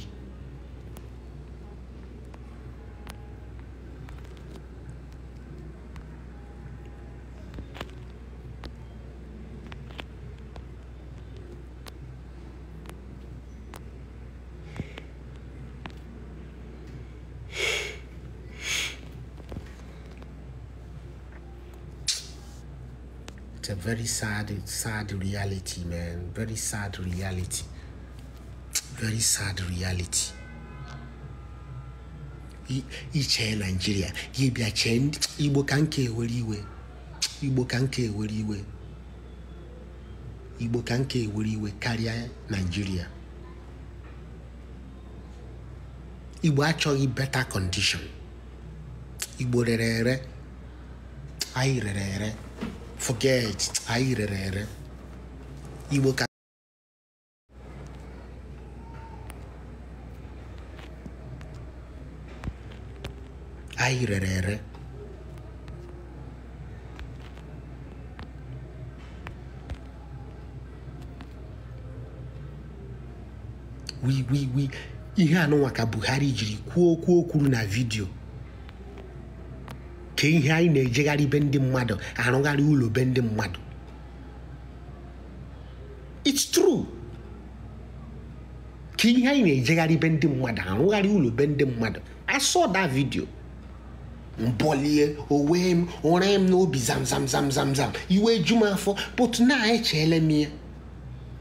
very sad, sad reality, man. Very sad reality. Very sad reality. iche naijiria gị bịa chee igbo ka nke ewere iwe igbo ka nke ewere iwe igbo ka nke iwe karịa naijiria igbo achọghị beta kọndishọn igbo rere ere anyị rere ere forget aí aí airerere iwe ui ui, wiwiwi ihe anụnwa ah, ka Buhari jiri kwuo okwu o na vidiyo nke ihe anyị na-ejegharị be ndị mmadụ arụgharị ụlọ be ndị mmadụ it's true ka ihe anyị na-ejegharị be ndị mmadụ arụgharị ụlọ be ndị mmadụ I saw that video mbọlie owe m ụra m n'obi zamzamzamzamzam iwe eju m afọ but na echeele m ya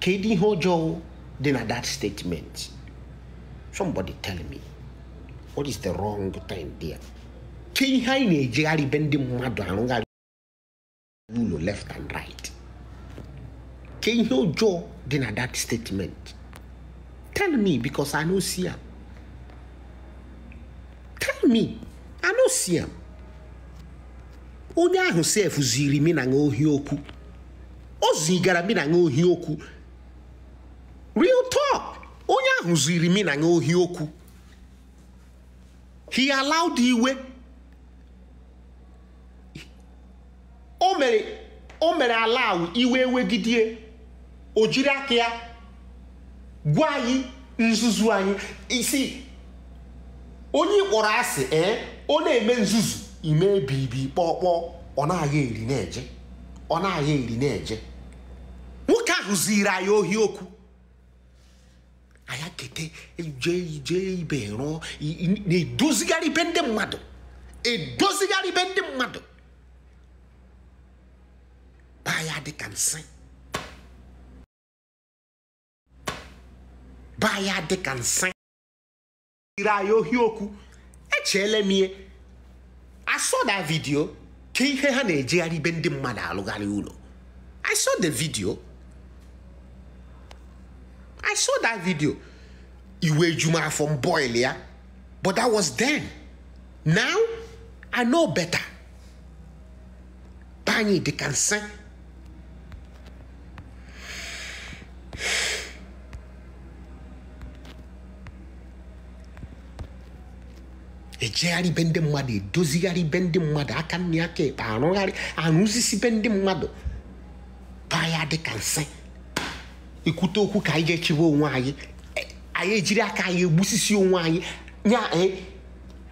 kedu ihe ọjọọ dị na that statement somebody tell me what is the wrong thing there ke ihe anyị na-ejegharị ibe ndị mmadụ arụgharị ụlọ left and right ke ihe ụjọọ dị na that statement tell me because I no see am tell me I no see am onye ahụ sef ziri mi na ohi okwu o zigara mi na ohi okwu real talk onye ahụ ziri mi na ohi okwu he allowed iwe o mere o mere ala ahụ iwe wegidie o jiri aka ya gwa anyị nzuzu anyị isi onye kpọrọ asị ee eh, ọ na-eme nzuzu ime bibi kpọkpọọ ọ na-agha eri na-eje ọ na-agha eri na-eje nwoke ahụ ziri anyị ohi okwu anya kete jee ije ibe rụọ na-edozigharị ibe ndị mmadụ edozigharị ibe ndị mmadụ taa ya dịka nsị Ba ya dịka nsị ire anyị ohi okwu Eche m I saw that video ka ihe ha na-ejegharị ibe ndị mmadụ alụgharị ụlọ I saw the video I saw that video iwe eju m afọ ya but that was then now I know better baa anyị ka nsị ejegharị be ndị mmadụ edozigharị be ndị mmadụ aka nri aka ekpe arụgharị arụzisi be ndị mmadụ baa ya nsị ekwute okwu ka anyị ga-echebe onwe anyị e, anyị ejiri aka anyị egbusisi onwe anyị nya e,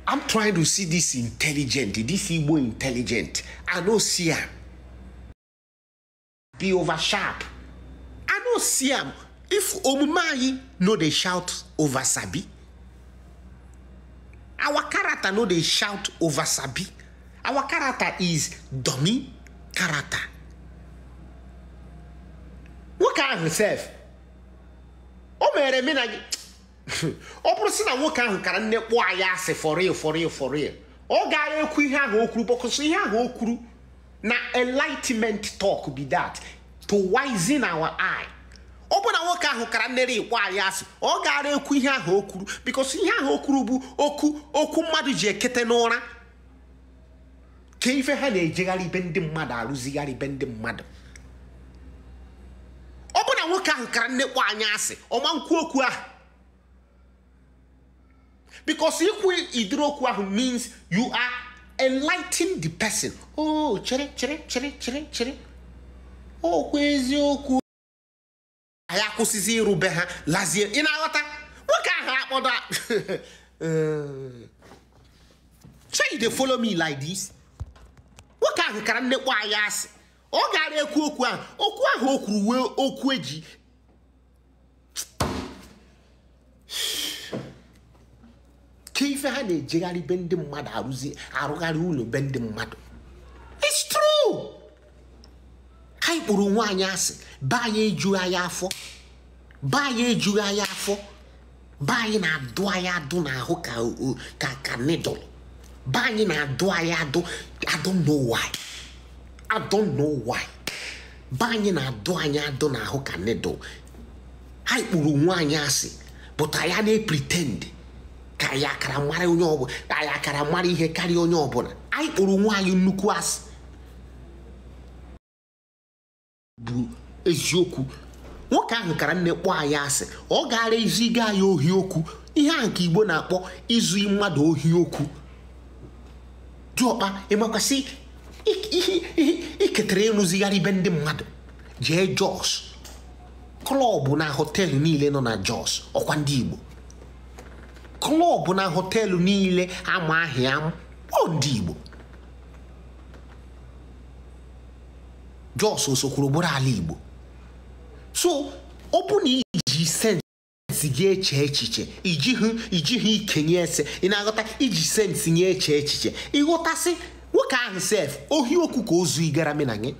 I'm trying to see this intelligent this Igbo intelligent I know see am be over sharp I know see am if omume anyị no dey shout over sabi our character no they shout over sabi our character is dummy character What nwoke ahụ sef o mere mena Oh, ọ bụrụ si na nwoke ahụ kara nne kpụọ for real, for real. for real oh ekwu ihe ahụ o kwuru bọkọsọ ihe ahụ o kwuru na enlightenment talk be that to in our eye ọ bụ na nwoke ahụ kara nnere ikpo anyị asị ọ gara ekwu ihe ahụ o bikos ihe ahụ o kwuru bụ okwu okwu mmadụ ji ekete n'ụra ka ife ha na-ejegharị ibe ndị mmadụ arụzigharị ibe ndị mmadụ ọ bụ na nwoke ahụ kara nnekpo anyị asị ọma nkwu okwu ahụ bikos ikwu idiri okwu ahụ means you are enlighten the person o oh, chere chere chere chere chere okwu oh, eziokwu anyị akwụsịzi irube ha lazie ị na-aghọta nwoke ahụ akpọdo eh, so you dey follow me like this nwoke ahụ kara nnekwu anyị asị ọ gara ekwu okwu ahụ okwu ahụ o kwuru wee okwu eji ka ife ha na-ejegharị be ndị mmadụ arụgharị ụlọ be ndị mmadụ it's true anyị kpụrụ nwaanyị asị ba anyị ejughị anyị afọ ba do ejughị anyị afọ ba na na-adụ anyị adụ n'ahụ ka ka ka nidụl na na-adụ anyị adụ I don't know why I don't know why baye na na-adụ anyị adụ n'ahụ ka nidụl anyị kpụrụ nwaanyị asị pụta ya na-epritend ka anyị akara mara onye ọbụla anyị akara mara ihe karịa onye ọbụla anyị kpụrụ nwaanyị nnukwu asị bụ eziokwu nwoke ahụ kara nne kpọọ anyị asị ọ gaara eziga ya ohi okwu ihe a nke igbo na-akpọ izu mmadụ ohi okwu diọkpa ịmakwasị iketara ịrụzigharị ibe ndị mmadụ jee jos klọbụ na họteelụ niile nọ na jos ọkwa ndị igbo na họtelụ niile ama ọ ndị igbo jos kwuru buru ala igbo so ọ bụ na iji sensị gị eche echiche ijighị ike ikenye ese ị na-aghọta iji sensị nye eche echiche ịghọtasị nwoke ahụ sef ohi okwu ka ozu igara na gị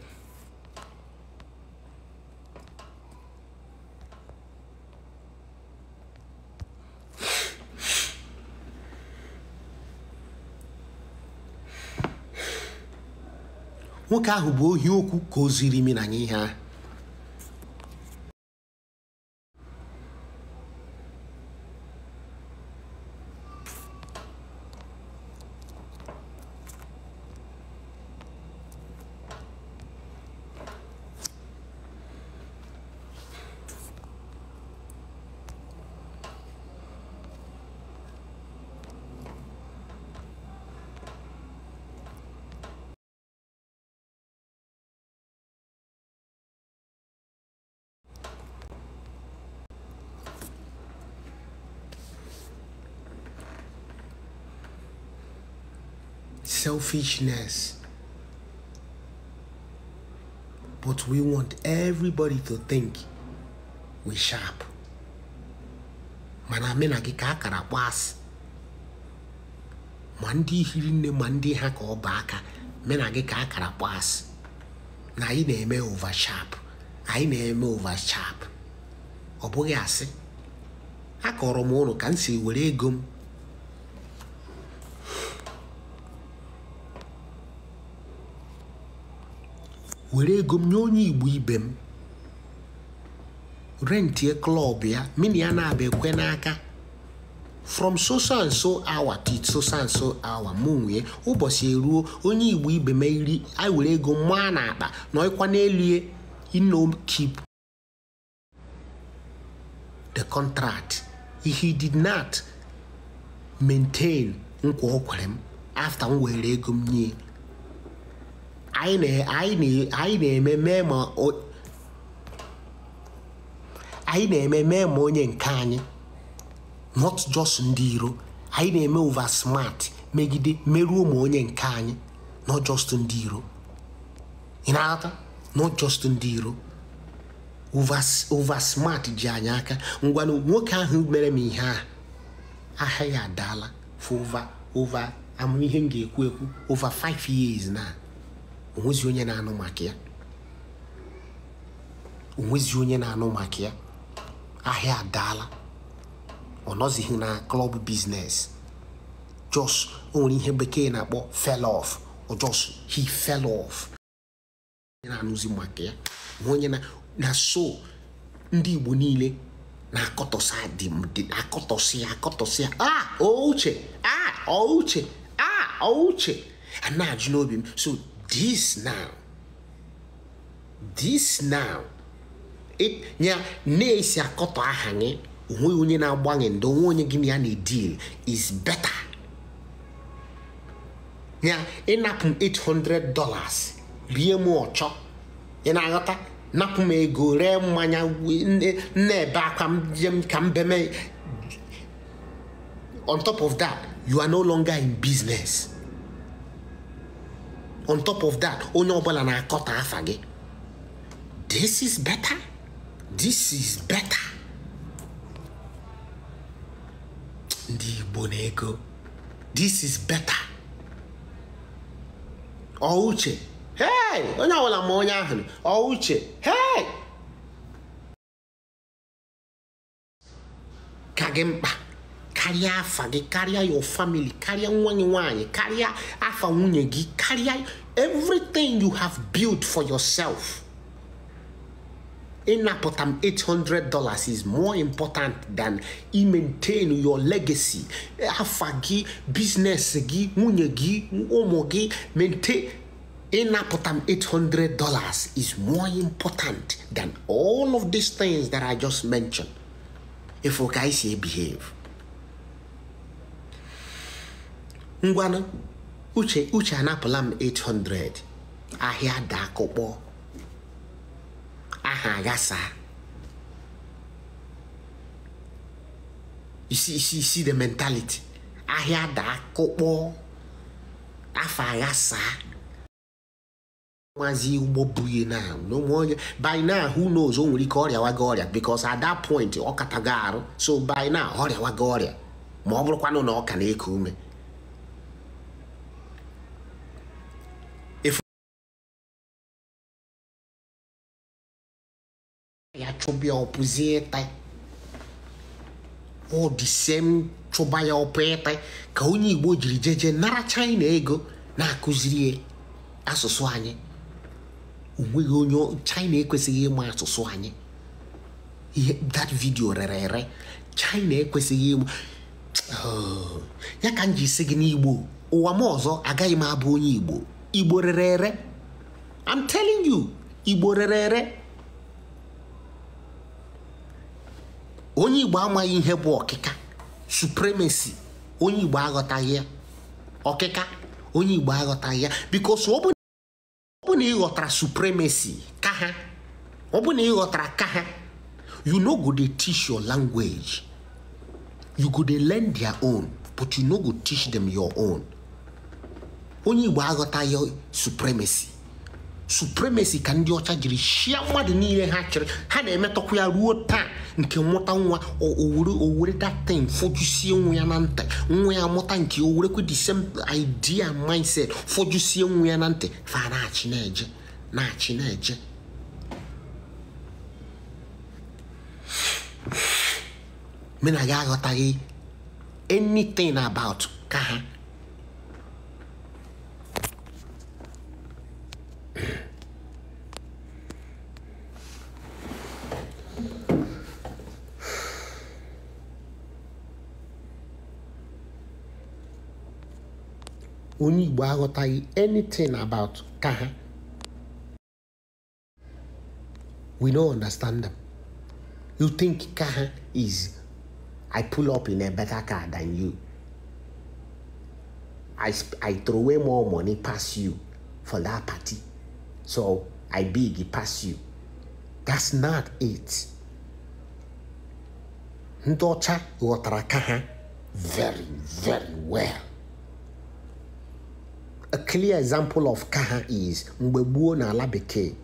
nwoke ahụ bụ ohi okwu ka o ziri imi na ihe ahụ selfishness. But we want everybody to think we sharp. mana mena gị ka akara kpọ asị ma ndị hiri nne ma ndị ha ka ọ bụ aka mena gị ka akara kpọ asị na anyị na-eme sharp anyị na-eme sharp ọ bụghị asị akọrọ m ụlọ ka m si were ego m were ego m nye onye igbo ibe m rentie klọb ya mini ya na-abịa ekwe n'aka from so so and so hour to so so and so hour ụbọchị eruo onye igbo ibe m iri anyị were ego maa na akpa na ọkwa n'elu ino keep the contract he did not maintain nkwa o kwere m afta m were ego m nye anyị na-eme mee ma anyị na onye nke anyị not just ndị iro anyị na-eme over smart megide merụọ ma onye nke anyị not just ndị iro ị not just ndị iro over smart ji anyị aka ngwanụ nwoke ahụ mere m ihe a ahịa ya adaala for over m ga-ekwu ekwu over 5 years na onwezi onye na-anụ maka ya onwezi onye na-anụ maka ya ahịa adaala ọ nọzighị na klọb biznes jos o nwere ihe bekee na-akpọ fell of or just he fell off na-anụzi maka ya onye na so ndị igbo niile na-akọtọsị akọtọsị akọtọsị a ouche uche ouche a ouche a na-ajụ n'obi m so this now this now ya na-esi akọtọ aha gị onweghị onye na-agbanwe ndị onwe onye gị na ya na-edil is better ya ịnapụ m 800 dollars rie m ọchọ ị na-aghọta napụ m ego ree mmanya na-ebe akwa m ka m beme on top of that you are no longer in business. on top of that onye ọbụla na-akọta afa gị this is better this is better ndị Igbo na-ego this is better ọ uche hey onye ọbụla ma onye ahụ ọ uche hey ka gị mkpa Carry afa gị your family carry nwa gị carry afa nwunye everything you have built for yourself ịnapụta potam $800 is more important than i maintain your legacy afa gị business, gị nwunye gị ụmụ gị maintain ịnapụta potam $800 is more important than all of these things that I just mentioned if you guys behave ngwanụ uche uche anapụla m 800 ahịa da akụkpọ aha aghasa isi isi isi the mentality ahịa da akụkpọ afọ aghasa nwazi ụgbọ buye na n'onwe onye by now who knows o nwere ike waga ọrịa because at that point ọ ga arụ so by now ọrịa waga ọrịa ma ọ bụrụkwanụ na ọ ka na-eku ume yɛatwo bia ɔpozie tae ɔde sɛm two chụba ya ɔpɛɛ tae ka onye igbo jiri jeje nara china ego na-akụziri asụsụ anyị onweghị onye china ekwesịghị ịma asụsụ anyị that video rere ere china ekwesịghị ịma ya ka m ji si gị n'igbo ụwa m ọzọ agaghị m abụ onye igbo igbo rere ere i'm telling you igbo rere ere onye igbo amaghị ihe bụ ọkịka supremacy onye igbo aghọtaghị ya ọkịka onye igbo aghọtaghị ya bikos ọ because na ịghọtara supremacy ka ha ọ ịghọtara ka ha you no go dey teach your language you go dey learn their own but you no go teach them your own onye igbo aghọtaghị supremacy supremacy ka ndị ọcha jiri shia mmadụ niile ha chịrị ha na-emetọkwa ya ruo taa nke mmụta nwa owere owere datin fọjusie nwa ya na ntị nwa ya mụta nke owerekwe the same idea mindset fọjusie nwa ya na ntị fa na-achị na-eje na-achị na-eje mena gị aghọtaghị anything about ka ha onye igbo aghọtaghị anything about ka ha we no understand them you think ka ha is i pull up in a better car than you i i throw away more money pass you for that party So I beg you pass you. That's not it. Ndị ọcha ghọtara very very well. A clear example of kaha is mgbe gboo n'ala bekee.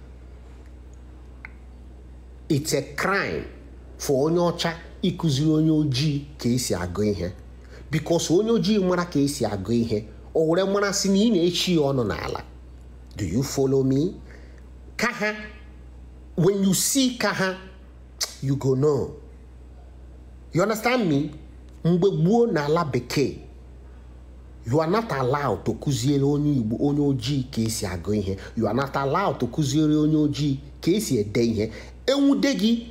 It's a crime for onye ọcha ịkụziri onye ojii ka esi agụ ihe because onye ojii mara ka esi agụ ihe o were mara na ị na-echi ya ọnụ n'ala Do you follow me? Kaha, when you see Kaha, you go know. You understand me? Mgbe gboo n'ala bekee, you are not allowed to kuziere onye Igbo onye ojii ka esi agụ ihe. You are not allowed to kuziere onye ojii ka esi ede ihe. Enwude gị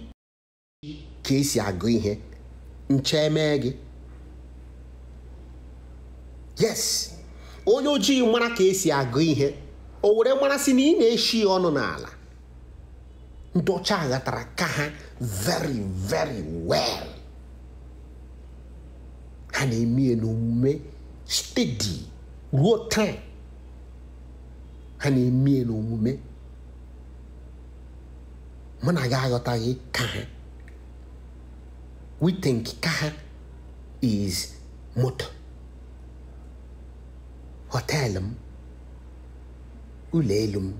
ka esi agụ ihe. Nche emee gị. Yes, onye ojii mara ka esi agụ ihe. o were mmasị na ị na-eshi ọnụ n'ala ndị ọcha ka ha very very well ha na-eme n'omume steady ruo taa ha na-eme n'omume mụ na gị aghọtaghị ka ha we think ka ha is moto họteelụ m ulelum.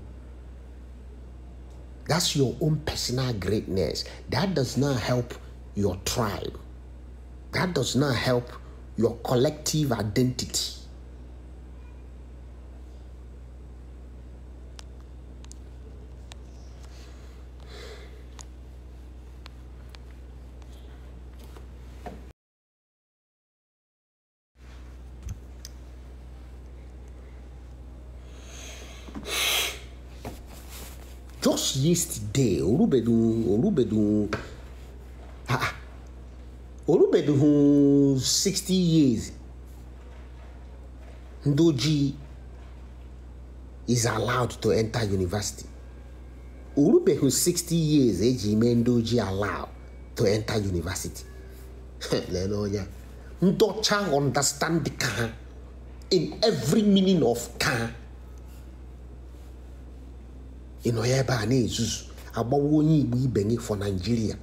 That's your own personal greatness. That does not help your tribe. That does not help your collective identity. just yesterday Olubedun Olubedun ah Olubedun sixty years Ndoji is allowed to enter university Olubedun sixty years eji eh, ime Ndoji allowed to enter university lele onye ndọcha understand ka in every meaning of ka ị ya ebe a na-ezuzu agbawa onye igbo ibe gị for Nigeria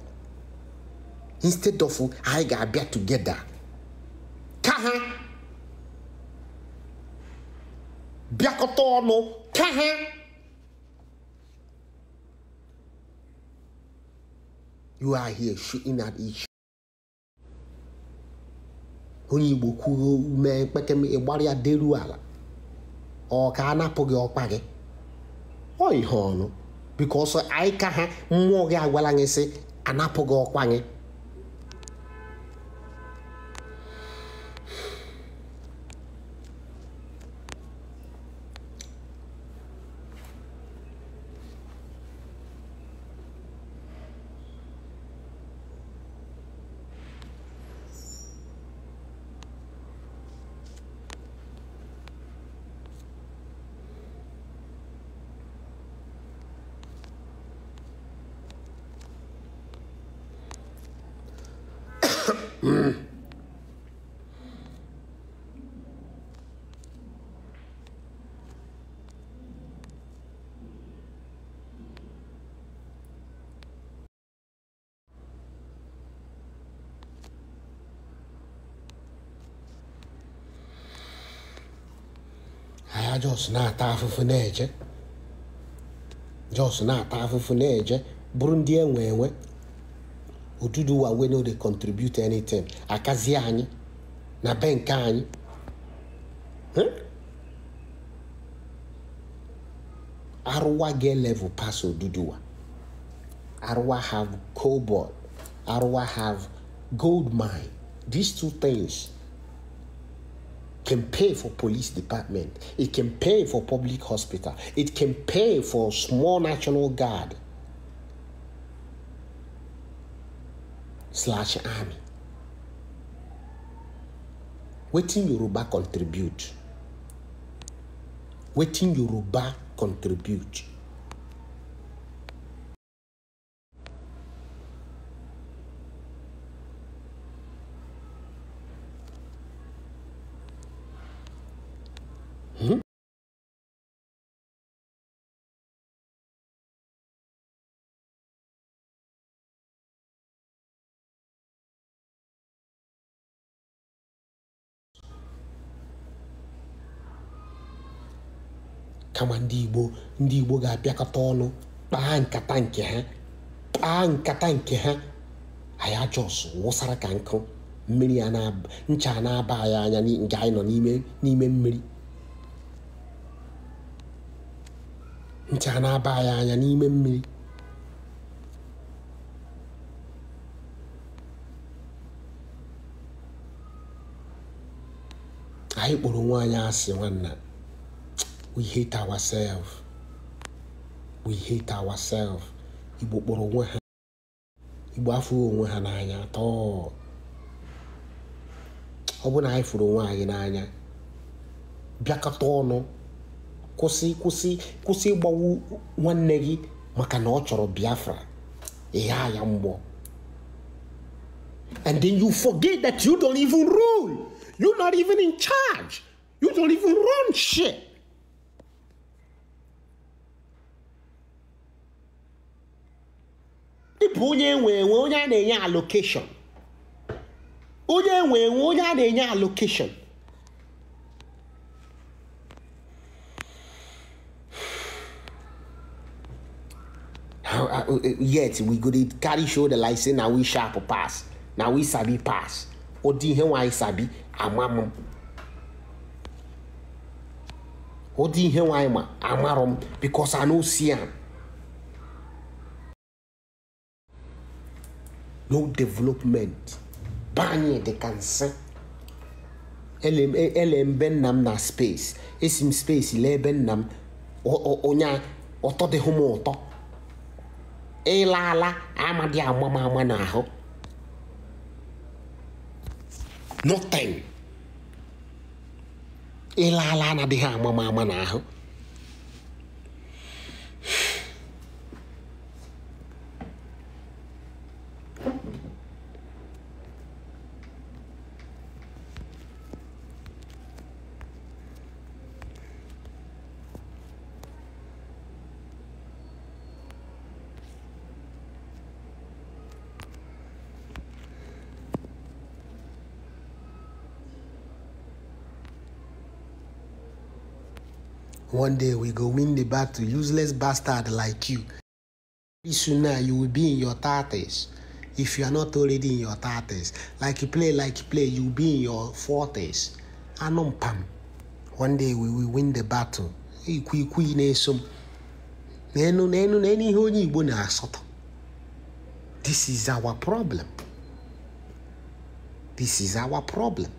instead of anyị ga-abịa together ka ha bịakọta ọnụ ka ha you are here shooting at each onye igbo kwuru ume mkpekeme ịgbara ya deru ala ọ ka a anapụ gị ọkpa gị ọ ihe ọnụ bikọsọ anyị ka ha mmụọ gị agwala gị sị anapụ gị ọkwa gị Jos na-ata afụfụ na-eje Jos na-ata afụfụ na-eje bụrụ ndị enwe enwe Oduduwa we no dey contribute anything akazie anyị na benke anyị arụwa get level pass Oduduwa arụwa have cobalt arụwa have gold mine these two things can pay for police department. It can pay for public hospital. It can pay for small national guard slash army. Waiting Yoruba contribute. Waiting Yoruba contribute. kama ndị igbo ndị igbo ga abịakọta ọnụ kpaa nkata nke ha kpaa nkata nke ha anyị ajọs wụsara ka nkụ mmiri ncha na-aba anyị anya nke anyị nọ n'ime mmiri ncha na-aba anyị anya n'ime mmiri anyị kpọrọ nwa anyị asị nwanna we hate ourselves we hate ourselves igbo kpọrọ onwe ha igbo afụghị onwe ha n'anya tọọ ọ bụ na anyị fụrụ onwe anyị n'anya bịakọta ọnụ kwụsị kwụsị kwụsị ịgbawu nwanne gị maka na ọ chọrọ biafra ịgha ya mgbọ and then you forget that you don't even rule you're not even in charge you don't even run shit bụ onye nwee enwe onye a na-enye allocation. onye nwee enwe onye a na-enye allocation. Uh, uh, uh, yet we go dey carry shoulder like say na we sharp pass na we sabi pass ụdị ihe nwaanyị sabi m. ụdị ihe nwaanyị ma amarọ m because I no see am no development bani de cancer nsị Elem ben nam na space de space lee o nna o onye ụtọ la m ụtọ ịla Ama nothing ịla la anadịghị na ho One day we go win the battle, useless bastard like you. Pretty soon now you will be in your 30s. If you are not already in your 30s, like you play, like you play, you will be in your 40s. Anum pam. One day we will win the battle. Ikwu ikwu na-eso m. N'enu n'enu n'enu ihe onye asoto This is our problem. This is our problem.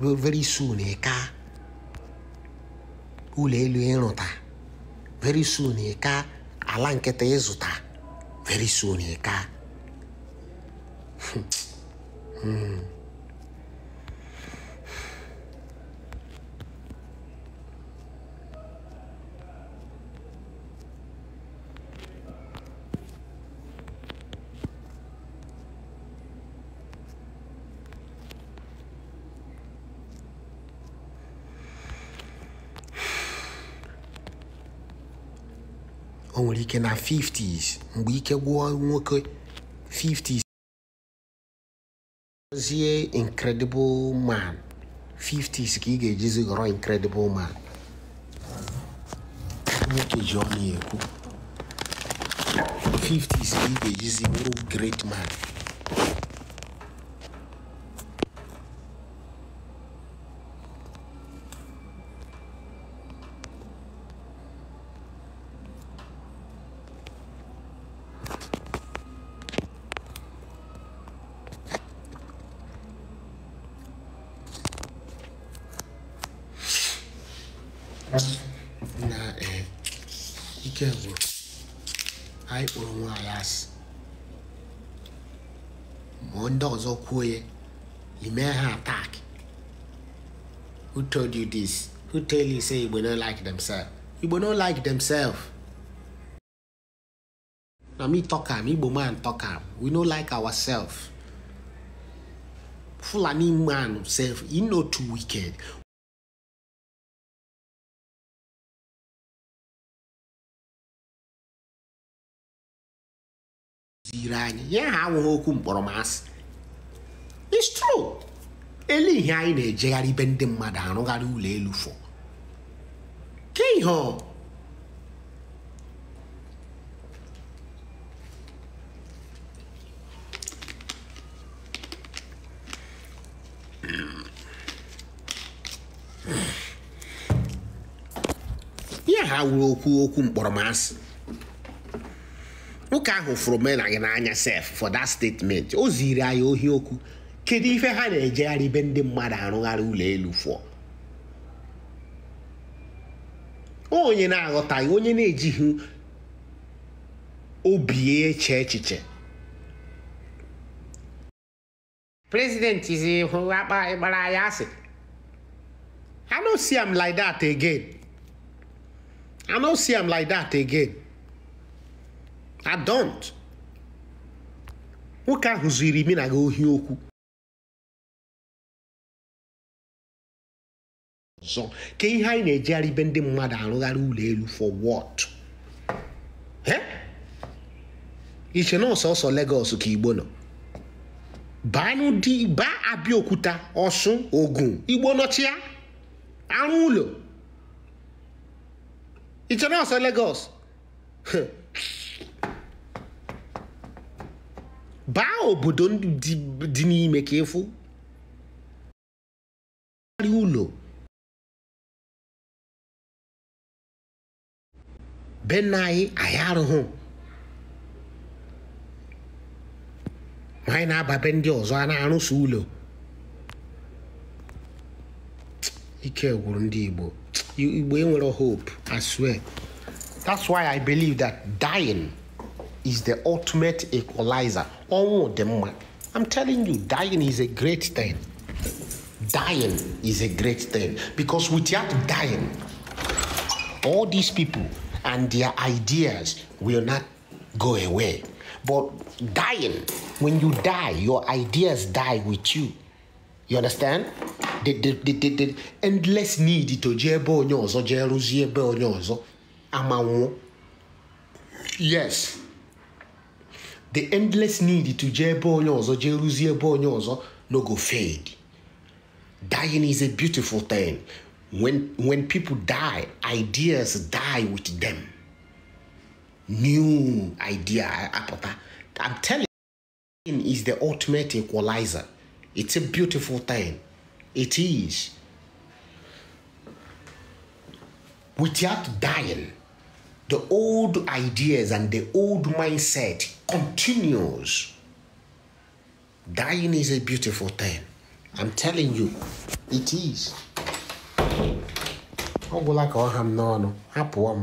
very soon ịka eh, ụlọ elu ịrụta eh, very soon ịka eh, ala nkịta ịzụta very soon ịka hmm. Only ike na 50s mgbe ike gwụọ nwoke 50s zie incredible man 50s ka ị ga-ejizi ghọrọ incredible man nwoke ji ọnụ ekwu 50s ka ị ga-ejizi bụrụ great man this who tell you say Igbo no like themselves? Igbo no like themselves. Now me talk am, Igbo man talk am. We no like ourselves. Fulani man self, he no too wicked. Zira anyị, ya ha awụghị okwu mkpọrọ masị. It's true. ele ihe anyị na-ejegharị ibe ndị mmadụ arụgharị ụlọ elu fọ ke ihe ihe ha wuru okwu okwu mkpọrọmasị nwoke ahụ fụrụ mena gị n'anya sef for dat statement o ziri anyị ohi okwu kedu ife ha na-ejegharị be ndị mmadụ arụgharị ụlọ elu fụọ onye na-aghọtaghị onye na-ejighị obi eche echiche prezidenti zi hụ akpa gbara ya asị I no see am like that again. I no see am like that again. I don't. Nwoke ahụ ziri mi na gị ohi okwu ọzọ ka ihe anyị na-ejigharị ibe ndị mmadụ arụgharị ụlọ elu for what iche na ọsọsọ Lagos ka Igbo nọ banụdị ba Abịaokuta Ọsụn Ogun Igbo nọchịa arụ ụlọ iche na ọsọ Lagos baa obodo dị n'ime ka ịfụ ụlọ bɛn n'anyị anyị arụghụ anyị na-aba be ndị ọzọ a na-arụsị ụlọ ike gwụrụ ndị igbo igbo enwere hope i swear that's why i believe that dying is the ultimate equalizer ọnwụ dị mma i'm telling you dying is a great thing dying is a great thing because without dying all these people and their ideas will not go away. But dying, when you die, your ideas die with you. You understand? The, the, the, the, the endless need to jebe Nyozo, ọzọ Nyozo, Amawo. Yes. The endless need to jee Nyozo, onye Nyozo, no go fade. Dying is a beautiful thing. When, when people die, ideas die with them. New idea, I'm telling you, is the ultimate equalizer. It's a beautiful thing. It is. Without dying, the old ideas and the old mindset continues. Dying is a beautiful thing. I'm telling you, it is. ọ gwụla ka ọ ha m n'ọnụ hapụọ m